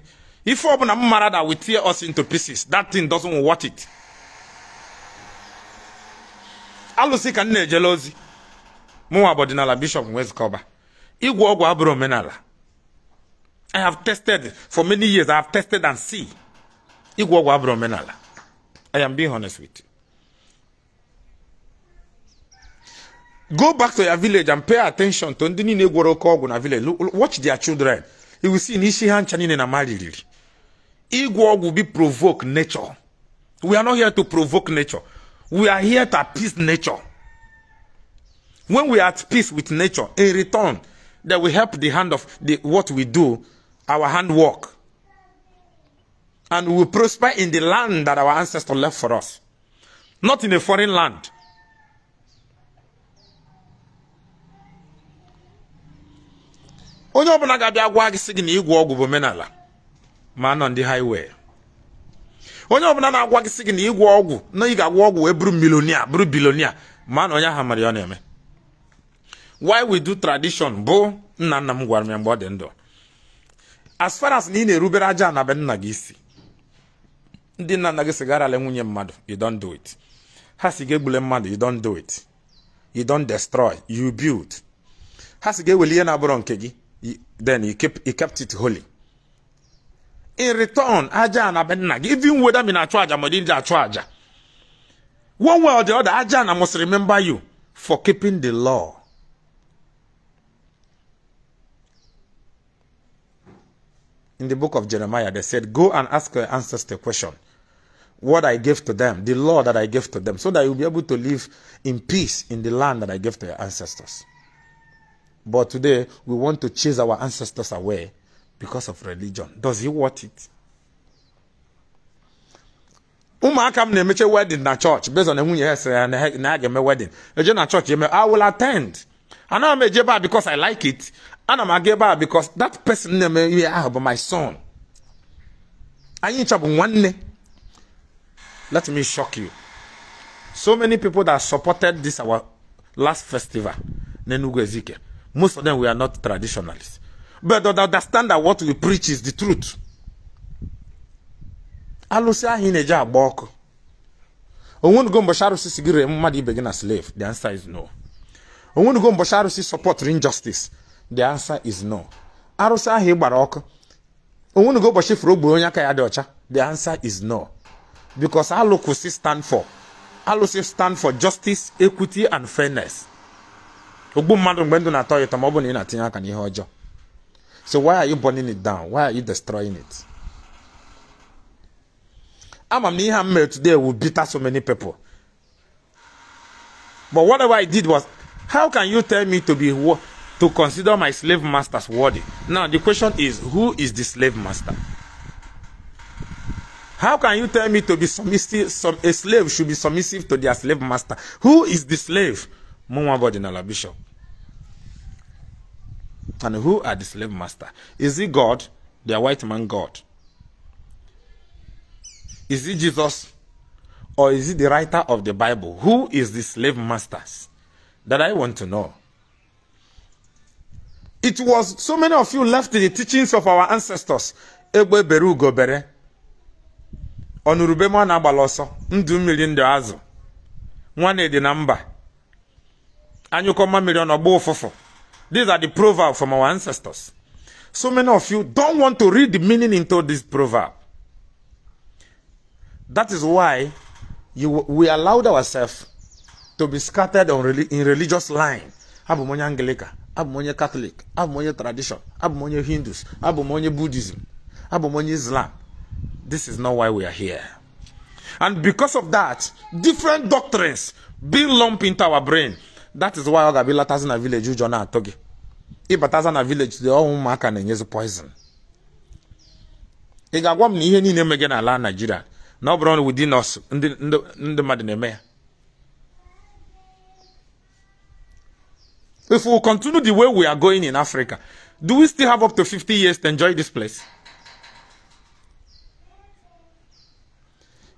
S1: ife ọbụla m mara that we tear us into pieces that thing doesn't worth it alụsị ka m na-ejele ozi mụnwa bụ ọdịnala bishop wezkọba ịgwọ ọgwụ abụrụ omenala i have tested for many years i have tested and see ịgwọ ọgwụ abụrụ omenala i am being honest with you Go back to your village and pay attention to ndini niile gwọrọ na village. Watch their children. You will see na isi ha ncha niile na mariri. Ịgwọ will be provoke nature. We are not here to provoke nature. We are here to appease nature. When we are at peace with nature, in return, that will help the hand of the, what we do, our handwork. And we prosper in the land that our ancestors left for us. Not in a foreign land. onye ọbụla ga-abịa gwa gị sị gị na ịgwọ ọgwụ bụ omenala ma nọ ndị haịwee onye ọbụla na-agwa gị sị gị na ịgwọ ọgwụ na ị ga agwa ọgwụ wee bụrụ milonia bụrụ bilonia ma na onye ahụ mara ya ọ na-eme why we do tradition bụ nna nna m gwara m ya mgbe ọ dị ndụ as far as na ị na-erubere aja anabe nna gị isi ndị nna nna gị sigarala nwunye mmadụ you don't do it ha si ga-egbule mmadụ you don't do it you don't destroy you build ha si ga-eweli ihe na-abụrọ nke gị then he kept, he kept it holy. In return, aja even whether me na charge or didn't charge. One way or the other, Ajahn must remember you for keeping the law. In the book of Jeremiah, they said, Go and ask your ancestors question. What I gave to them, the law that I gave to them, so that you'll be able to live in peace in the land that I gave to your ancestors. But today, we want to chase our ancestors away because of religion. Does he want it? ụmụaka m na wedding na church based on the ya yes na ge me wedding. eje na chọọchị me I will attend I m eje ebe a because I like it I m aga ebe a because that person na-eme ihe ahụ my son anyị ncha bụ nwanne let me shock you so many people that supported this our last festival n'Enugu Ezike Most of them, we are not traditionalists. But they understand that what we preach is the truth. alusi ahụ ị na-eji agba ọkụ. Onwenugo mgbe arụsị sigiri gị ibe gina slave? The answer is no. Onwenugo mgbe Arusi support injustice? The answer is no. Arusi ahụ ị gbara ọkụ. Onwenugo ụbọchị furu ogbe onye aka ya dị ọcha? The answer is no. Because alụkwụsị stand for. Alụsị stand for justice, equity and fairness. ogbu mmadụ mgbe ndụ na-atọ ụtọ ma ọ bụ na ị na-atinye aka n'ihe ọjọọ so why are you burning it down why are you destroying it ama m na ihe a m mere today will bitter so many people but whatever I did was how can you tell me to be to consider my slave masters worthy now the question is who is the slave master how can you tell me to be submissive some a slave should be submissive to their slave master who is the slave Mumwa Bodinala Bishop. And who are the slave master? Is he God, their white man God? Is he Jesus? Or is he the writer of the Bible? Who is the slave masters? That I want to know. It was so many of you left the teachings of our ancestors. Egbe beru gobere. Onurube mwana agbala ọsọ. Ndụ mmiri ndị azụ. Nwa na-edi mba. And you a million or bofofo. These are the proverb from our ancestors. So many of you don't want to read the meaning into this proverb. That is why you, we allowed ourselves to be scattered on, in religious line. Abumonye Anglican, Abumonye Catholic, Abumonye tradition, Abumonye Hindus, Abumonye Buddhism, Abumonye Islam. This is not why we are here. And because of that, different doctrines being lumped into our brain. that is why ọ ga-abịa ịlatazi na vileji ụjọ na-atụ gị ịbataza na vileji dị ọnwụ ụmụaka na-enyezi poison ị ga-agwa m na ihe niile emege n'ala Naịjirịa na ọ bụrụ na us ndị mmadụ na-eme ya if we continue the way we are going in Africa do we still have up to 50 years to enjoy this place?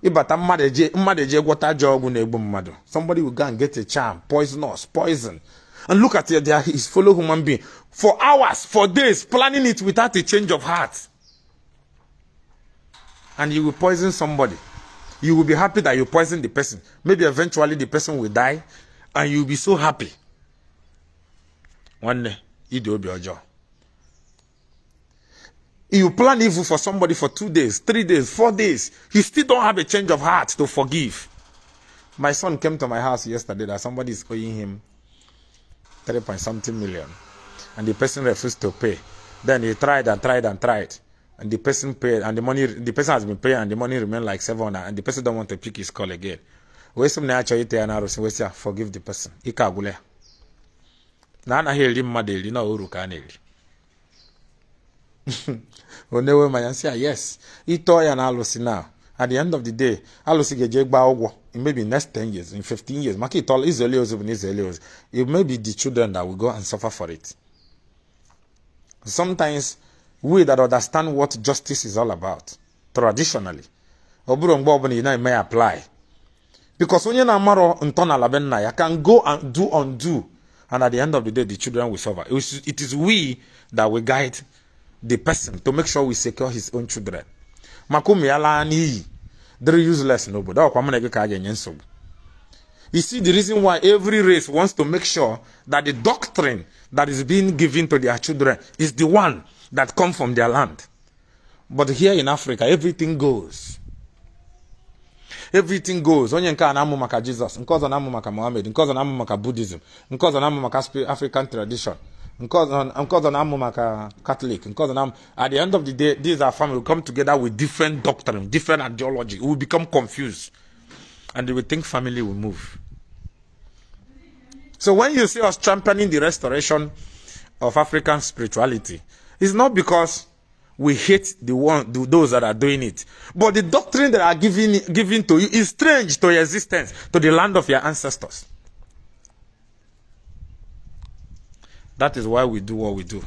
S1: ịbata mmadụ eje mmadụ eje gwọta ajọ ọgwụ na-egbu mmadụ somebody will go and get a charm poisonous poison and look at it there is follow human being for hours for days planning it without a change of heart and you will poison somebody you will be happy that you poison the person maybe eventually the person will die and you will be so happy nwanne ide obi ọjọọ You plan evil for somebody for two days, three days, four days. You still don't have a change of heart to forgive. My son came to my house yesterday that somebody is owing him three point something million, and the person refused to pay. Then he tried and tried and tried, and the person paid, and the money the person has been paying, and the money remained like seven hundred, and the person don't want to pick his call again. Wesum na achọ ite ya na arụsị wesịa forgive the person. Ike agwụla Na anaghị na onewe ma ya sị yes ịtọ ya na alụsị at the end of the day alụsị ga-eje ogwo. ụgwọ maybe next 10 years in 15 years maka all izeli even bụ it may be the children that will go and suffer for it sometimes we that understand what justice is all about traditionally ọ bụrụ mgbe obula may ị apply because onye na-amarọ ntọala be nna ya can go and do undo and at the end of the day the children will suffer it is we that will guide the person to make sure we secure his own children makumi alani, they're useless nobody. you see the reason why every race wants to make sure that the doctrine that is being given to their children is the one that comes from their land but here in africa everything goes everything goes onye nke a amu maka Jesus, nke ozo na-amụ maka mohammed nke na-amụ maka buddhism nke ozo na-amụ maka african tradition because I'm a Catholic, because I'm, at the end of the day, these are family will come together with different doctrine, different ideology. We will become confused. And they will think family will move. So when you see us championing the restoration of African spirituality, it's not because we hate the one the, those that are doing it. But the doctrine that are giving given to you is strange to your existence, to the land of your ancestors. that is why we do what we do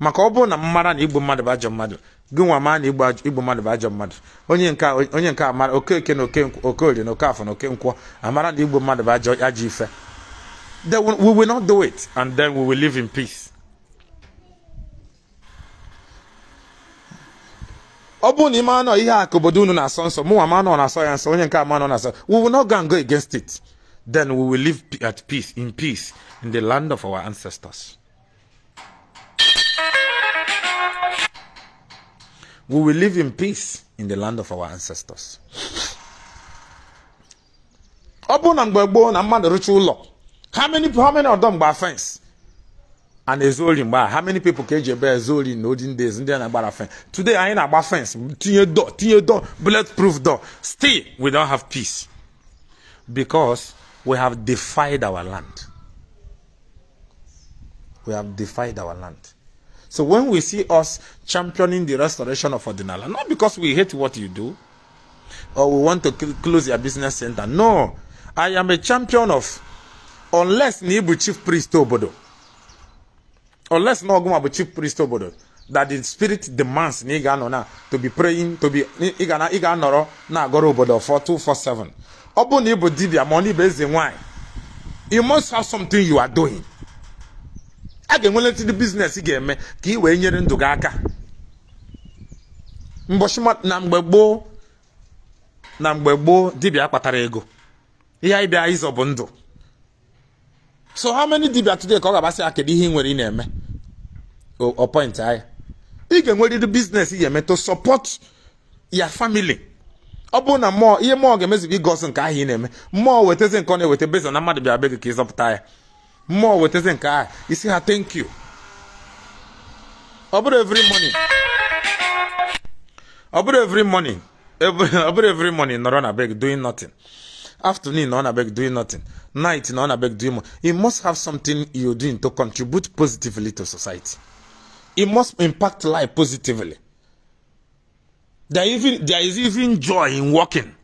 S1: maka ọ bụrụ na mmara na igbo mmadụ bụ ajọ mmadụ gị nwa na igbo mmadụ bụ ajọ mmadụ onye nke onye nke amara okeke na oke okorie na afọ na oke okenkwọ amara na igbo mmadụ bụ ajọ ajọ ife then we will not do it and then we will live in peace ọ bụrụ na ị nọ ihe a obodo unu na-asọ nsọ mụ nwa ma na-asọ ya nsọ onye nke ama na-asọ we will not go and go against it Then we will live at peace, in peace, in the land of our ancestors. We will live in peace in the land of our ancestors. How many how many of them by fence? And ezoli by how many people can eji ebe ezoli in olden days ndị na-agbara fence? Today I ain't na-agba fence tinye door tinye door bulletproof door still we don't have peace because We have defied our land. We have defied our land. So when we see us championing the restoration of Ordinala, not because we hate what you do or we want to close your business center. No, I am a champion of unless Nibu chief priest Obodo, unless Noguma chief priest Obodo, that the spirit demands Niganona to be praying, to be Igana Iganoro, Nagoro Obodo 4247. ọ bụrụ na ị bụ dibịa ma ọ na ibe eze nwaanyị you must have something you are doing a ga-enwele ntị biznes ị ga-eme ka ị wee nyere ndụ gị aka mbochi na mgbe gboo na mgbe gboo dibịa kpatara ego ihe anyị bịa ịzọ bụ ndụ so how many dibịa today ka ọ ga-agbasị ya kedu ihe ị nwere ị na-eme ọpọint anyị ị ga-enwerịrị biznes ị ga-eme to support your family ọ bụrụ na mmụọ ihe mmụọ ga-emezikwa igosi nke ahụ ị na-eme mmụọ weteze nke ọ na-eweta bezo na mmadụ bịara be gị ka ịzọpụta ya mmụọ wetazi nke ahụ isi ha thank you ọ bụrụ every morning ọ bụrụ every morning ọ bụrụ every morning nọrọ na doing nothing afternoon on abeg doing nothing night on abeg doing more you must have something you're doing to contribute positively to society you must impact life positively There, even, there is even joy in walking.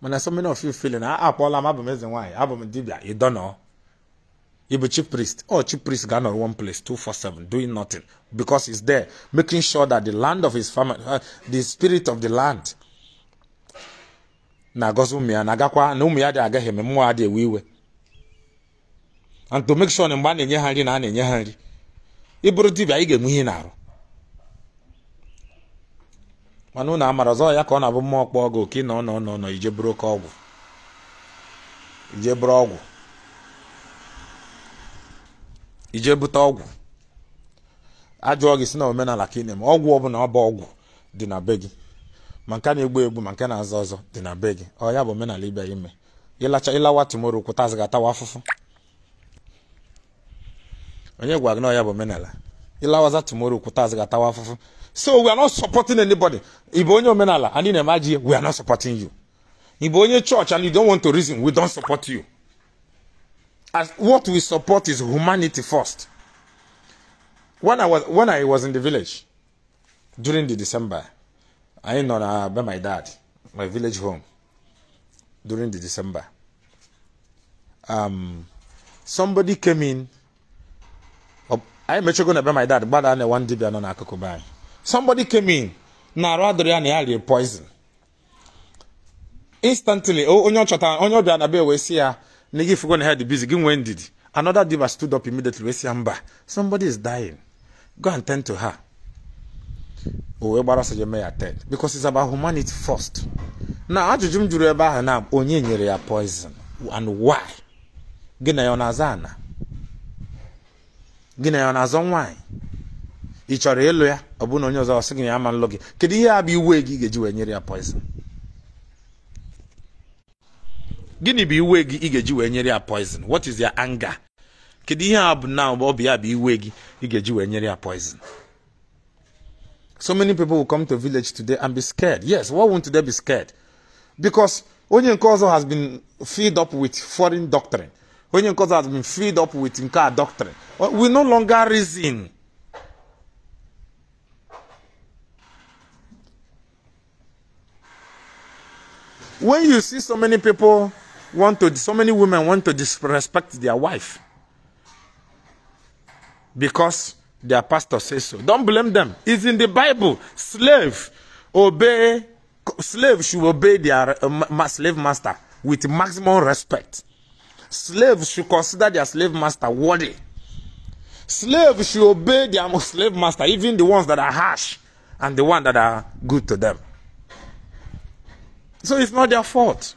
S1: Mana so many of you feeling, ah, ah Paul, I'm abụ m eze nwanyị, abụ m dibia, you don't know. You be priest. Oh, chief priest gone on one place, 247, doing nothing. Because he's there, making sure that the land of his family, uh, the spirit of the land, na-agọzi ụmụ ya na-agakwa na umu ya dị agaghị eme mmụọ adị ewe iwe and to make sure na mgbe a na-enye ha nri na a na-enye ha nri ịbụrụ dibia ị ga-enwe ihe na mana unu amara ọzọ ya ka ọ na-abụ mmụọ kpọọ gị oke na ọ nọ nọ nọ ije bụrụ oke ọgwụ ije bụrụ ọgwụ ije bute ọgwụ ajụọ gị si na omenala ka ị na-eme ọgwụ ọbụla ọ bụ ọgwụ dị na be gị ma nke na-egbu egbu ma nke na-azọ ọzọ dị na be gị ọ ya bụ omenala ibe ya ime ịlacha ịlawa tumoro kwụtazi gị atawa afụfụ onye gwara gị na ọ ya bụ omenala ịlawaza tumoro kwụtazi gị atawa afụfụ So we are not supporting anybody. Ibonyo Menala, and in Emaji, we are not supporting you. Ibonyo Church, and you don't want to reason, we don't support you. As what we support is humanity first. When I was when I was in the village during the December, I ain't on ah, by my dad, my village home during the December. Um, somebody came in. I met you going to be my dad, but I one day I'm not going to somebody came in na arụ adịrị ya na ya rie poison instantly onye ọ onye ọbịa na be wee si ya na gị fugo na head busy gị nwee ndidi another diva stood up immediately wee si ya mba somebody is dying go and tend to her o wee gbara ọsọ je ya ted because it's about humanity first na ajụjụ m jụrụ ebe ahụ na onye nyere ya poison and why gị na ya ọ na-aza ana gị na ya ọ na-azọ nwaanyị ị chọrọ ịlụ ya ọ bụ na onye ọzọ ọsị gị ya ama nlụ gị kedu ihe a bụ iwe gị ga-eji wee nyere ya poison gịnị bụ iwe gị ị ga-eji wee nyere ya poison what is your anger kedu ihe a bụ na ọ bụ ya bụ iwe gị ị ga-eji wee nyere ya poison so many people will come to village today and be scared yes why won't they be scared because onye nke ọzọ has been filled up with foreign doctrine onye nke ọzọ has been filled up with nke a doctrine we no longer reason When you see so many people want to, so many women want to disrespect their wife because their pastor says so. Don't blame them. It's in the Bible. Slave obey, slave should obey their uh, slave master with maximum respect. Slaves should consider their slave master worthy. Slaves should obey their slave master, even the ones that are harsh and the ones that are good to them. So it's not their fault.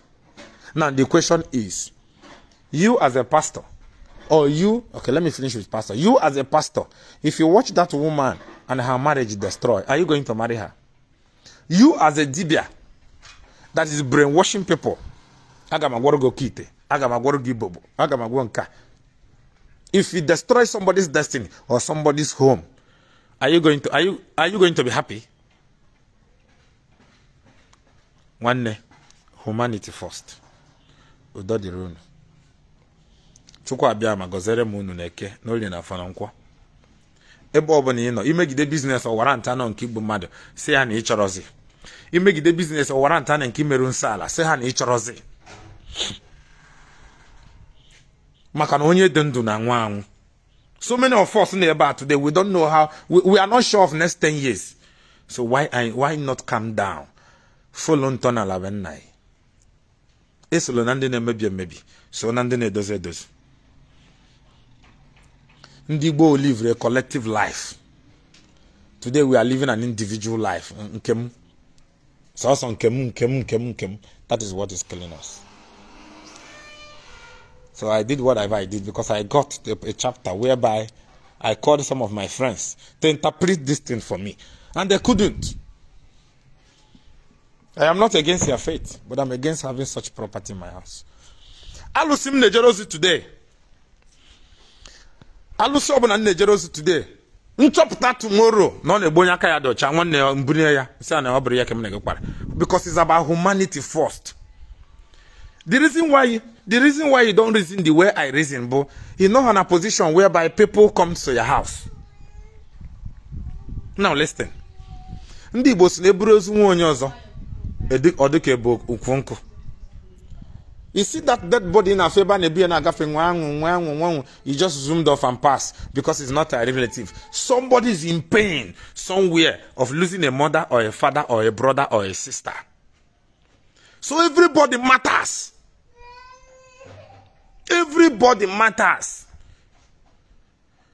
S1: Now the question is, you as a pastor, or you, okay, let me finish with pastor. You as a pastor, if you watch that woman and her marriage destroyed, are you going to marry her? You as a dibia that is brainwashing people, agamagworogo kite, agamagworogi bobo, agamagwonka. If it destroys somebody's destiny or somebody's home, are you going to are you are you going to be happy? nwanne humanity first udo dịrị unu chukwu abịa ma gọziere m unu na-eke n'olie na afọ na ebe ọbụla ị nọ imegide biznes ọwara nta nọ nke igbu mmadụ si ha na ịchọrọzi imegide biznes ọwara nta na nke imerụ nsọ ala si ha na maka na onye dị ndụ na anwụ anwụ so many of us na ebe a today we don't know how we, we are not sure of next 10 years so why, why not calm down folo ntọ n'ala nna anyị esolo na ndị na-emebi emebi so na ndị na-edozi edozi ndị Igbo livre a collective life today we are living an individual life nke So sọsọ nke m nke m nke that is what is killing us so I did whatever I did because I got a, a chapter whereby I called some of my friends to interpret this thing for me and they couldn't. I am not against your faith, but I'm against having such property in my house. Alụsị m today. alusi ọbụla m na-ejere ozi today. Nchọpụta tomorrow na ọ na onye aka ya dị nwane nwanne ya mbunye ya sị ọ bụrụ ya ka m na-egekwara because it's about humanity first. The reason why the reason why you don't reason the way I reason bu you know on a position whereby people come to your house. Now listen. Ndị Igbo si na eburu ozu nwa onye ọzọ ọ bụ ka ukwu nkụ You see that dead body in a fever and a beer and a gaffing, one, you just zoomed off and pass because it's not a relative. Somebody is in pain somewhere of losing a mother or a father or a brother or a sister. So everybody matters. Everybody matters.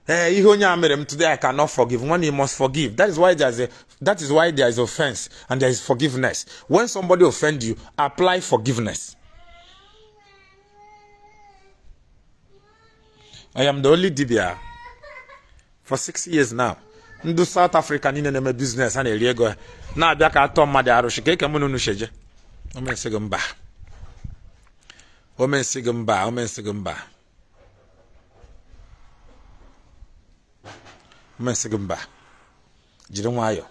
S1: Eh, ihe onye a mere m today i cannot forgive one he must forgive that is why there is a that is why there is offense and there is forgiveness when somebody offend you apply forgiveness i am the only dibia for six years now ndị south africa niile na-eme biznes a na-eri ego na-abịa ka atọ mmadụ arụsị ka eke mụ n'unu sheje omensị gị mba omensị gị mba omensị gị mba mmesị gị mba jiri nwayọọ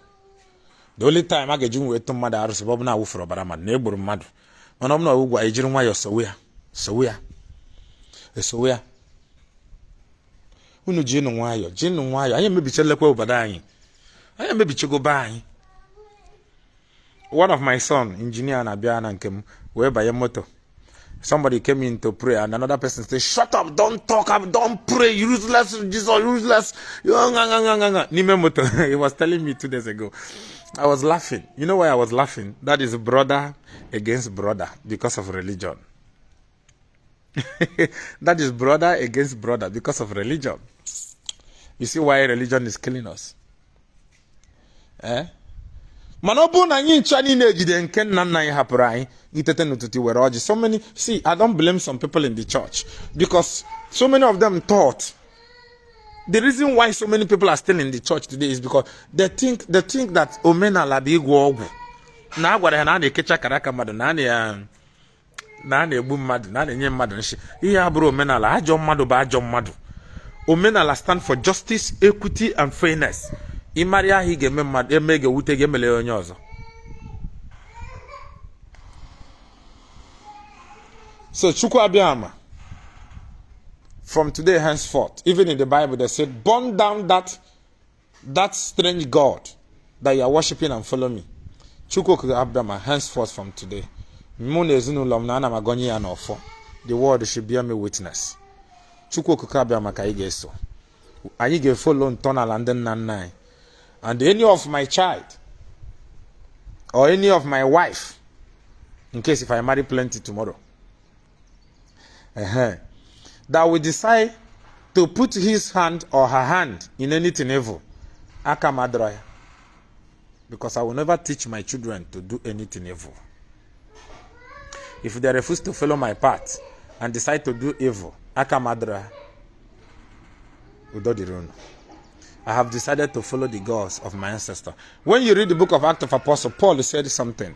S1: the only time a ga-eji wee tụ mmadụ arụsị bụ na awụfere ọbara mmadụ na egburu mmadụ mana ọ ọbụna ọwụgwụ anyị jiri nwayọọ sowe ya sowe ya esowe ya unu jinụ nwayọọ jinụ nwayọọ anyị emebichelekwa obodo anyị anyị emebichego be anyị one of my son injinia na-abịa na nke m wee banye moto somebody came in to pray and another person said, Shut up, don't talk up, don't pray, useless, Jesus, useless. Nimemoto, he was telling me two days ago. I was laughing. You know why I was laughing? That is brother against brother because of religion. that is brother against brother because of religion. You see why religion is killing us? Eh? mana ọ bụrụ na anyị ncha niile ejide nke nna nna anyị hapụrụ anyị itete n'ụtụtụ were ọjị so many see i don't blame some people in the church because so many of them thought the reason why so many people are still in the church today is because they think they think that omenala bụ ịgwọ ọgwụ na a ya na a na-ekecha akara aka mmadụ na a na-egbu mmadụ na a na-enye mmadụ nshi ihe abụrụ omenala ajọ mmadụ bụ ajọ mmadụ omenala stand for justice equity and fairness ịmarị ahụ ị ga-eme mmadụ eme ga-ewute gị emele onye ọzọ so chukwu abịama from today henceforth even in the bible they said burn down that that strange god that you are worshiping and follow me chukwu abịama henceforth from today mụ na ezinụlọ m na ana m agọnye ya n'ọfọ the world should bear me witness chukwu okuku abịama ka anyị ga-eso anyị ga-efolo ntọala ndị nna nna anyị and any of my child or any of my wife in case if I marry plenty tomorrow. Uh -huh. That will decide to put his hand or her hand in anything evil. Akamadraya. Because I will never teach my children to do anything evil. If they refuse to follow my path and decide to do evil, Akamadraya. Udodirunu. I have decided to follow the gods of my ancestor. When you read the book of Acts of Apostle, Paul said something.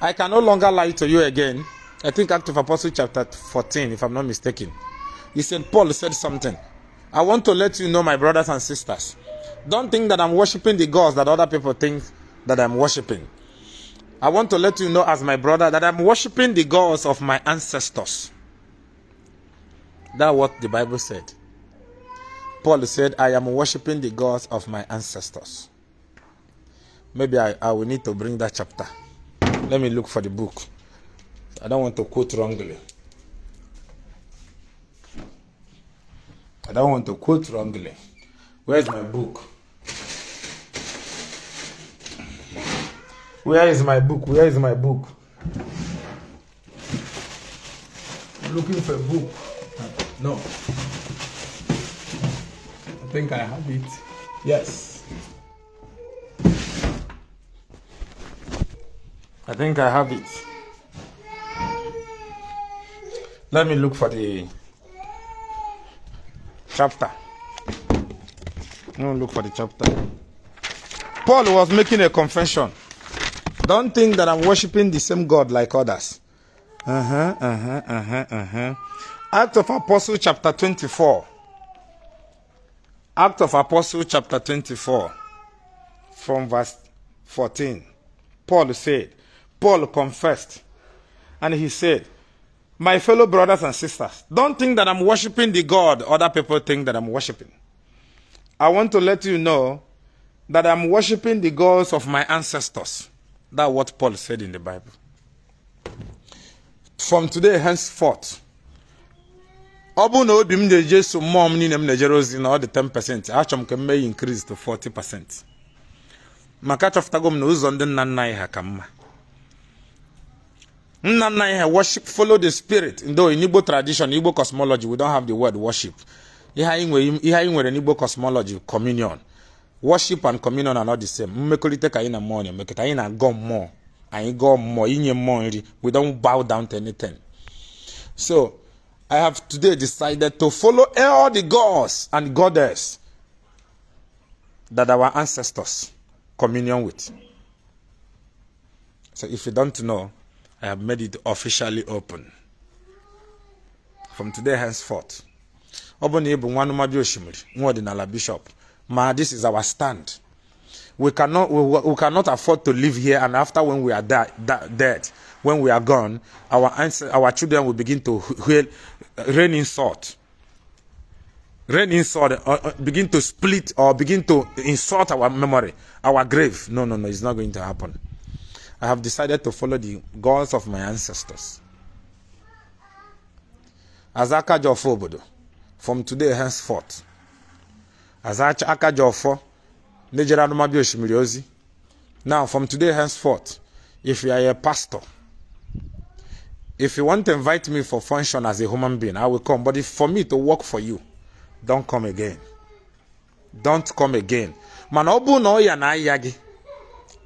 S1: I can no longer lie to you again. I think Acts of Apostle chapter 14, if I'm not mistaken. He said, Paul said something. I want to let you know, my brothers and sisters. Don't think that I'm worshiping the gods that other people think that I'm worshiping. I want to let you know, as my brother, that I'm worshiping the gods of my ancestors. That's what the Bible said. Paul said, I am worshiping the gods of my ancestors. Maybe I, I will need to bring that chapter. Let me look for the book. I don't want to quote wrongly. I don't want to quote wrongly. Where's my book? Where is my book? Where is my book? looking for a book. No think I have it. Yes. I think I have it. Let me look for the chapter. No, look for the chapter. Paul was making a confession. Don't think that I'm worshiping the same God like others. Uh huh, uh huh, uh huh, uh huh. Act of Apostle chapter 24. Act of Apostle chapter 24 from verse 14. Paul said, Paul confessed and he said, my fellow brothers and sisters, don't think that I'm worshiping the God other people think that I'm worshiping. I want to let you know that I'm worshiping the gods of my ancestors. That's what Paul said in the Bible. From today henceforth, ọ bụrụ na obi m na-eje so mmụọ m niile m na-ejere ozi na ọ dị 10% achọ m ka m mee t increase to 40% maka achọpụtago m na ụzọ ndị nna nna anyị ha ka mma nna nna anyị ha worship follow the spirit ndo in Igbo tradition Igbo cosmology we don't have the word worship ihe anyị nwere n'Igbo cosmology communion worship and communion are not the same mmekọrịta ka anyị na mmụọ na-emekọta anyị na-agọ mmụọ anyị gọọ mmụọ inye mmụọ nri we don't bow down to anything so I have today decided to follow all the gods and goddess that our ancestors communion with. So if you don't know, I have made it officially open. From today henceforth. bishop. Ma this is our stand. We cannot, we, we cannot afford to live here and after when we are dead, when we are gone, our, our children will begin to heal raining salt. Rain salt, or, uh, uh, begin to split or begin to insult our memory, our grave. No, no, no, it's not going to happen. I have decided to follow the gods of my ancestors. Azaka Jofobodo, from today henceforth, Azaka Akajofo, Nejera Numabio Shimiriozi, now from today henceforth, if you are a pastor, if you want to invite me for function as a human being, I will come. But if for me to work for you, don't come again. Don't come again. Manobu no bụ na ọ ya na aya gị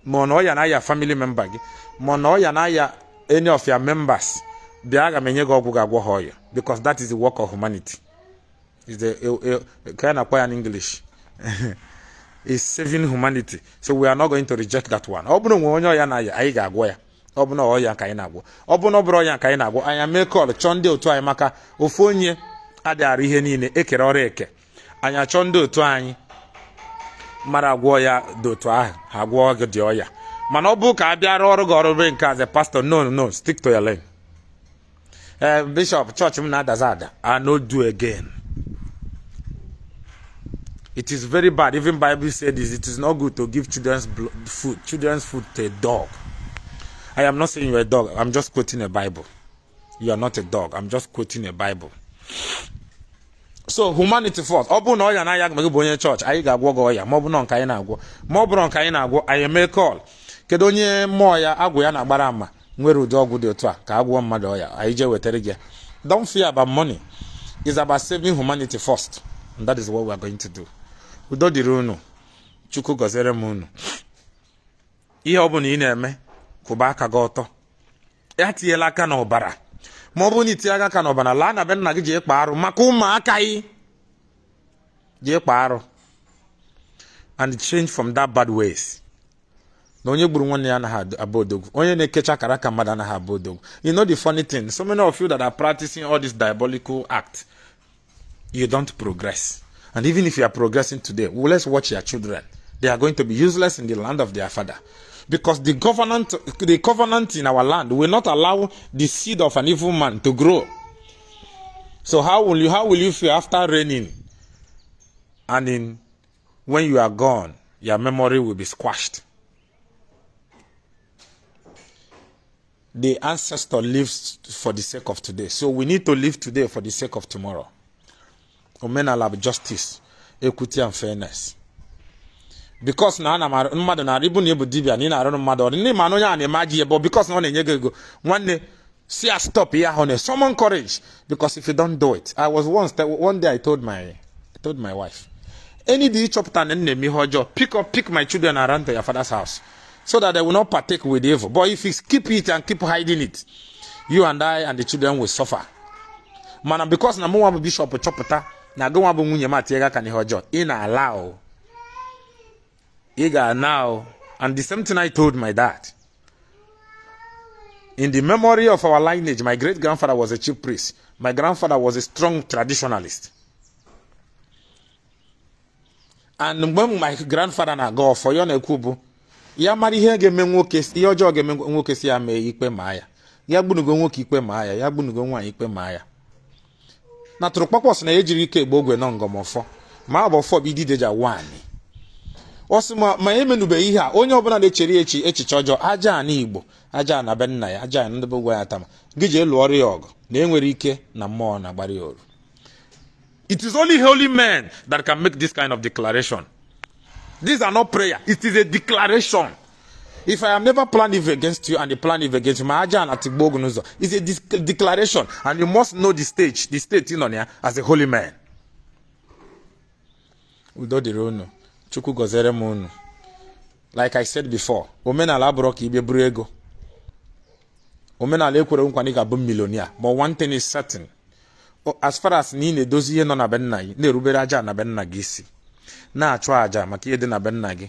S1: ma na ya family member gị ma na ya any of your members bịa aga m enye gị because that is the work of humanity is the kind of na-akpọ ya is saving humanity so we are not going to reject that one. ọ bụrụ no onye ọya na ya ọbụna bụ na ọya ka anyị na-agwọ ọbụna bụ na ọ ọya ka anyị na-agwọ anya mee kọl chọọ ndị otu anyị maka ofu onye adịghara ihe niile ekere ọrụ eke anyị achọọ ndị otu anyị mara agwọ ya dị otu ahụ ha gwọọ gị dị ọya mana ọ bụ ka a bịara ọrụ gị ọrụ be nke aze pastor no no stick to your lane ee eh, bishọp chọọchị m na-adaza ada I no do again it is very bad even bible said it is not good to give children's food children's food to a dog I am not saying you're a dog. I'm just quoting a Bible. You are not a dog. I'm just quoting a Bible. so humanity first ọ bụrụ na ọya na-aya gị bụ onye chọọchị anyị ga-agwọ gị ya ma ọ bụ na nke anyị na-agwọ ma ọ bụrụ nke anyị na-agwọ anyị eme call kedu onye mmụọ ya agwụ ya na-agbara ama nwere udi ọgwụ dị otu a ka agwọ mmadụ ọya anyị jee wetere gị don't fear about money is about saving humanity first and that is what we are going to do udo dịrị unu chukwu gọziere m unu ihe ọ bụla ị na-eme Kubaka goto ya tinyela aka n'ọbara ma ọ bụrụ na itinye aka n'ọbara na be gị jee kpa arụ maka ụmụaka yị and change from that bad ways onye gburu nwanne ya anaghị abụ odogwu onye na-ekecha kara aka mmadụ anaghị you know the funny thing so many of you that are practicing all this diabolical act you don't progress and even if you are progressing today well, let's watch your children they are going to be useless in the land of their father because the covenant, the covenant in our land will not allow the seed of an evil man to grow. So how will you how will you feel after raining and in when you are gone, your memory will be squashed. The ancestor lives for the sake of today. So we need to live today for the sake of tomorrow. Omenalab justice, equity and fairness. bikos na ana m mmadụ na ịbụ na ebu dibia na ị na-arụrụ mmadụ ọrụ nne ma na onye a na-eme ajị ebe bikos na ọ na-enye gị ego nwanne si ya stop ihe ahụ na summon courage bikos if you don't do it i was once one day i told my I told my wife any day ịchọpụta na nne m ihe ọjọọ pick up pick my children around to your father's house so that they will not partake with evil but if you keep it and keep hiding it you and i and the children will suffer mana bikos na mụ nwa bụ bishọp chọpụta na agụ nwa bụ nwunye m atịega aka n'ihe ọjọọ ị na-ala o ị ga-ana and the same thing I told my dad in the memory of our lineage my great grandfather was a chief priest my grandfather was a strong traditionalist and mgbe my grandfather na-aga ọfọ ya na ya mara ihe ga-eme nwoke ihe ọjọọ ga-eme nwoke si ya mee ikpe ma ya ya gbunugo nwoke ikpe maa ya ya gbunugo nwaanyị ikpe maa ya na tụrụkpọkpọs na ejiri ike egbe ogwe nọ ngọmọfọ ma ọ bụ bụ ọ sị ma ma emenubeghị ihe a onye ọbụla na-echere echi echiche ọjọọ aja na igbo aja na be nna ya aja na ndebe ya tama gị jee ọrụ ya ọgụ na enwere ike na mmụọ na-agbara ya oru it is only holy men that can make this kind of declaration this are not prayer it is a declaration if i am never plan if against you and the plan if against you ma aja na tigbo ogun ụzọ is a declaration and you must know the stage the state ị nọ ya as a holy man udo dịrị unu chukwu gọziere m unu like i said before omenala abụrụ ka ibe buru ego omenala ekwere nkwa na ga-abụ milionia ma one thing is certain as far as na ị na-edozi ihe nọ na be nna gị na-erubere aja na be nna gị isi na-achụ aja maka ihe dị na be nna gị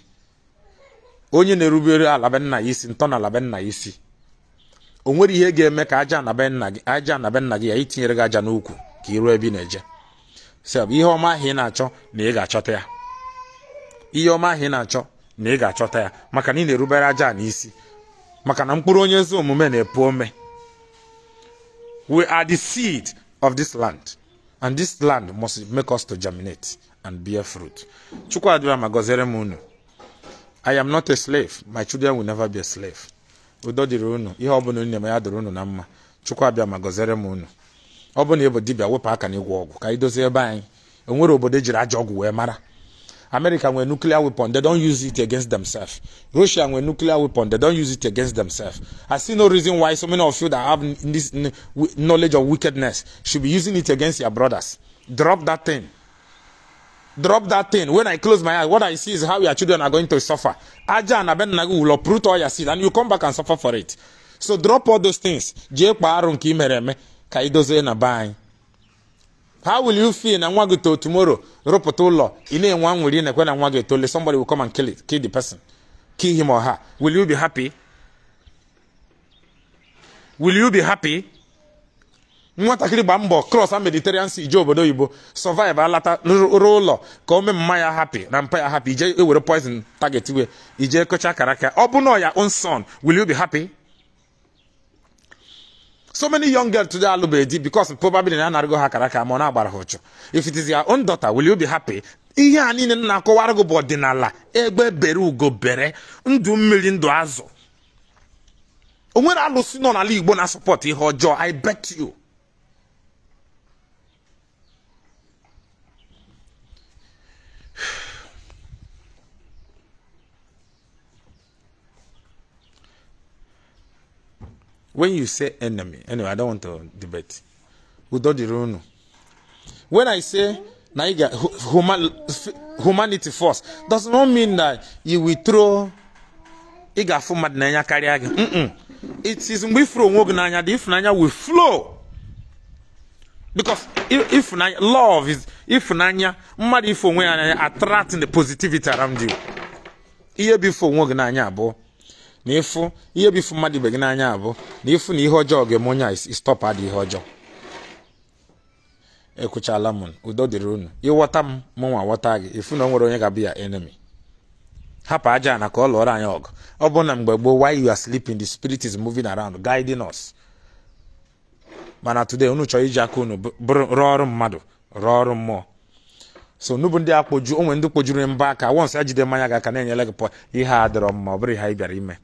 S1: onye na-erubere ala be nna ya isi ntọ na ala be nna ya isi o nwere ihe ga-eme ka aja na be nna gị aja na be nna gị ya itinyere gị aja n'ukwu ka ịrụ ebe ị na-eje sef ihe ọma ahụ ị na-achọ na ị ga-achọta ya ihe ọma ahụ ị na-achọ na ị ga-achọta ya maka na ị na-erubere aja n'isi maka na mkpụrụ onye ezi omume na-epu ome we are the seed of this land and this land must make us to germinate and bear fruit chukwuadịra ma gọziere m unu i am not a slave my children will never be a slave udo dịrị unu ihe ọ bụla onye na-eme ya dịrị unu na mma chukwu abịa ma gọziere m unu ọ bụ na ịbụ dibịa wepụ aka n'ịgwọ ọgwụ ka anyị dozie ebe anyị enwere obodo ejiri aja ọgwụ wee mara America with nuclear weapon, they don't use it against themselves. Russia with nuclear weapon, they don't use it against themselves. I see no reason why so many of you that have this knowledge of wickedness should be using it against your brothers. Drop that thing. Drop that thing. When I close my eyes, what I see is how your children are going to suffer. Aja and Abenagu will uproot all your seed and you come back and suffer for it. So drop all those things. ka na how will you feel na nwa gị too tomorrow rụpụta ụlọ ị na-enwe anwụrị na-ekwe na nwa gị etole somebody will come and kill it kill the person kill him or her will you be happy will you be happy nwatakịrị gba mbọ cross a mediterranean sea ije obodo oyibo survive alata rụrụ ụlọ ka o mee mma ya happy na mpa ya happy ije ewere poison target we ije kọcha karaka ọ bụ na ya own son will you be happy so many young girls today alụbeghị di because probably na anarịgo ha kara ka ma ọ na-agbara ha if it is your own daughter will you be happy ihe a niile na-akọwara gị bụ ọdịnala egbe bere ugo bere ndụ mmiri ndụ azụ o nwere alụsị nọ n'ala Igbo na sọpọt ihe ọjọọ I bet you when you say enemy anyway i don't want to debate udo dịrị when i say na you human humanity first does not mean that you will throw ị ga na mmadụ n'anya karịa gị it is mgbe ifuru onwe gị n'anya the ịfụnanya will flow because if ịfụnanya love is if mmadụ ife onwe ya n'anya attracting the positivity around you ihe bụ ife onwe gị n'anya abụọ na ịfụ ihe bụ ifu mmadụ ibe gị n'anya abụ na ịfụ na ihe ọjọọ ga-eme onye a istọpụ adị ihe ọjọọ ekwuchala m udo dịrị unu ịghọta m mụ nwa ghọta gị ịfụ na o nwere onye ga ya enemy hapụ aja na ka ọ lụọrọ anyị ọgụ ọ bụ na mgbe gboo while you are sleeping the spirit is moving around guiding us mana today unu chọrọ iji aka unu rụọ ọrụ mmadụ rụọ ọrụ mmụọ so n'ubu ndị akpoju onwe ndị kpojuru mba aka wons ejide mmanya ga aka na-enyere gị pọ ihe a dịrọ mma ọ bụrụ ihe anyị bịara ime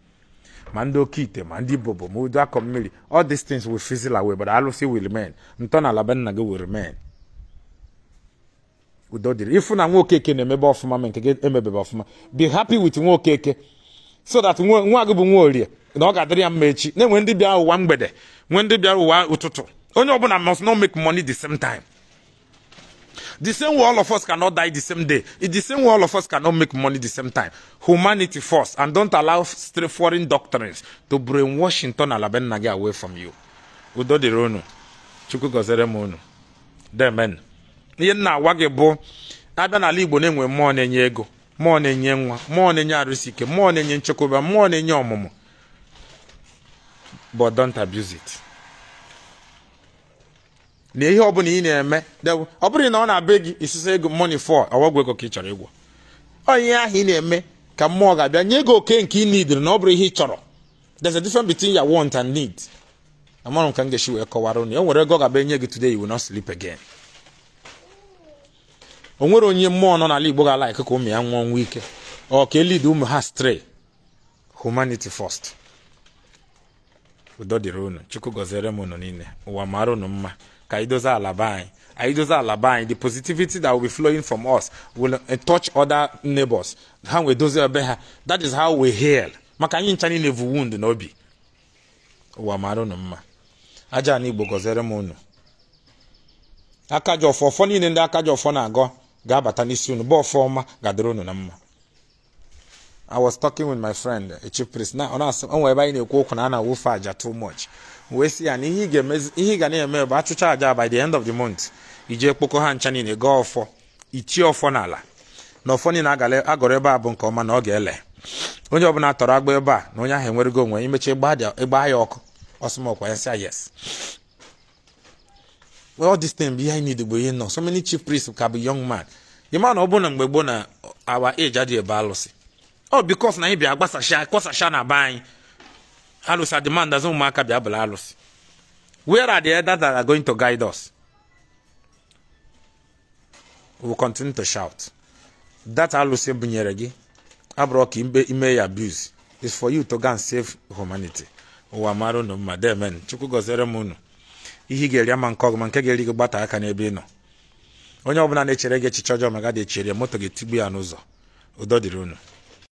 S1: ma ndị oke ite ma ndị bobo ma udu akọ mmiri all these things will fizzle away but alụsị will remain ntọala be nna gị will remain udo dịrị ịfụ na nwaokeke na-emebe ọfụma ma nke gị emebebe ọfụma be happy with nwokeke so that nwa gị bụ nwa orie na ọ ga-adịrị ya mma echi na-enwe ndị bịara ụwa mgbede nwee ndị bịara ụwa ụtụtụ onye ọbụla must not make money the same time The same way all of us cannot die the same day. It's the same way all of us cannot make money the same time. Humanity first. And don't allow foreign doctrines to bring washington Inton Alabenagi away from you. Udo dironu. Chukwu gọzere m unu. Demen. Ihe nna agwa gị bụ Igbo na-enwe mmụọ na ego mmụọ na-enye nwa mmụọ na-enye arụsị ike mmụọ na ọmụmụ but don't abuse it. na ihe ọ bụla ị na-eme ọ bụrụ na ọ na-abịa gị isusa ego money for ọwagwụ ego ka ị chọrọ ịgwọ onye ahụ ị na-eme ka mmụọ ga-abịa nye gị oke nke ị nidiri na ọ bụrụ ihe ị chọrọ there's a different between your want and need amarụ m ka m ga-esi wee kọwara unu e nwere ego ọ ga-abịa nye gị today you will not sleep again o nwere onye mmụọ nọ n'ala Igbo ga-ala ka ụmụ ya nwụọ ọnwụ ike ọ ka elid ụmụ ha stray humanity first udo dịrị ụnụ chukwu gọziere m unu niile ụwa mara unu mma ka anyị dozie ala be anyị anyị dozie ala be anyị the positivity that will be flowing from us will eh, touch other neighbors ha nwee dozie ebe ha that is how we heal maka anyị ncha niile bụ wound n'obi ụwa mara unu mma aja na igbo gọziere m unu aka ji ọfọ ọfọ niile ndị aka ji ọfọ na-agọ ga-abata n'isi unu bụ ọfọ ọma ga-adịrị unu na mma I was talking with my friend, echi chief priest. Now, on us, on where ebe anyị na ekwu na a na-awụfe aja too much. wee si ya na ihe ị ga na-eme bụ achụcha aja by the end of the month iji kpokọ ha ncha niile gaa ọfọ itie ọfọ n'ala na ọfọ niile agọrọ ebe a bụ nke ọma na ọ ga-ele onye ọbụla tọrọ agba ebe a na onye ahụ enwerego onwe imechi ịgba ya ọkụ ọsụmọkwa ya sịa yes all this thing bụ ihe anyị need bụ ihe nọ so many chief priests ka bụ young man ịma na ọ bụ na mgbe gboo na awa age adịghị ebe alụsị ọ bikos na anyị bịa gbasasha kwasasha na be anyị alụsị azụ ụmụaka bịa bụla alụsị where are the elders that are going to guide us we will continue to shout that alụsị bunyere gị abụrụ ka ime ya abuse is for you to go and save humanity ụwa mara unu mma demen chukwu gọziere m unu ihe ị ga-eri ama nke ọgụma nke ga-eri gị gbata aka n'ebe ị nọ onye ọbụla na-echere gị echiche ọjọọ maga dị echere moto gị tigbu ya n'ụzọ udo dịrị unu